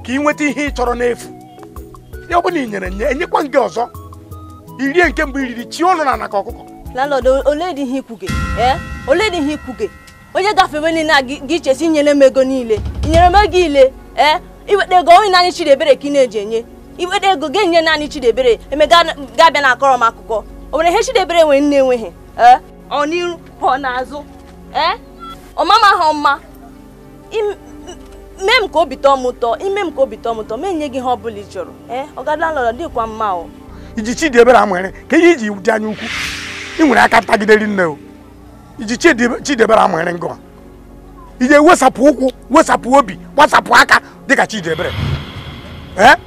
Speaker 1: ka ị nweta ihe ị n'efu ya ọ nyere nye enyekwa nke ọzọ irie nke mbụ iriri chi na anaka ọkụkọ oledị ihe ikwuge
Speaker 2: eh? onye gafewe niile a gị chesi inyere m ego niile nyere m ego ile iweta ego onye naanị Chidiebere ka ị na-eji enye iweta ego ga enye naanị Chidiebere emega ga-abịa na akọrọ m akụkọ o nwere ihe Chidiebere nwere nne enweghị ọ n'iru ọ n'azụ ọmama ha ọma mee m ka obi tọọ m ụtọ ime m ka obi tọọ m ụtọ mee nye gị ihe ọ bụla ị chọrọ ee ọgadala lọrọ dịkwa mma o
Speaker 1: iji Chidiebere amụere ka ihe iji dị anya ukwu ị nwere aka ntagideri nne o iji Chidiebere amụere ngọ ị ga-ewesapụ ụkwụ wesapụ obi gbasapụ aka dịka Chidebere eh?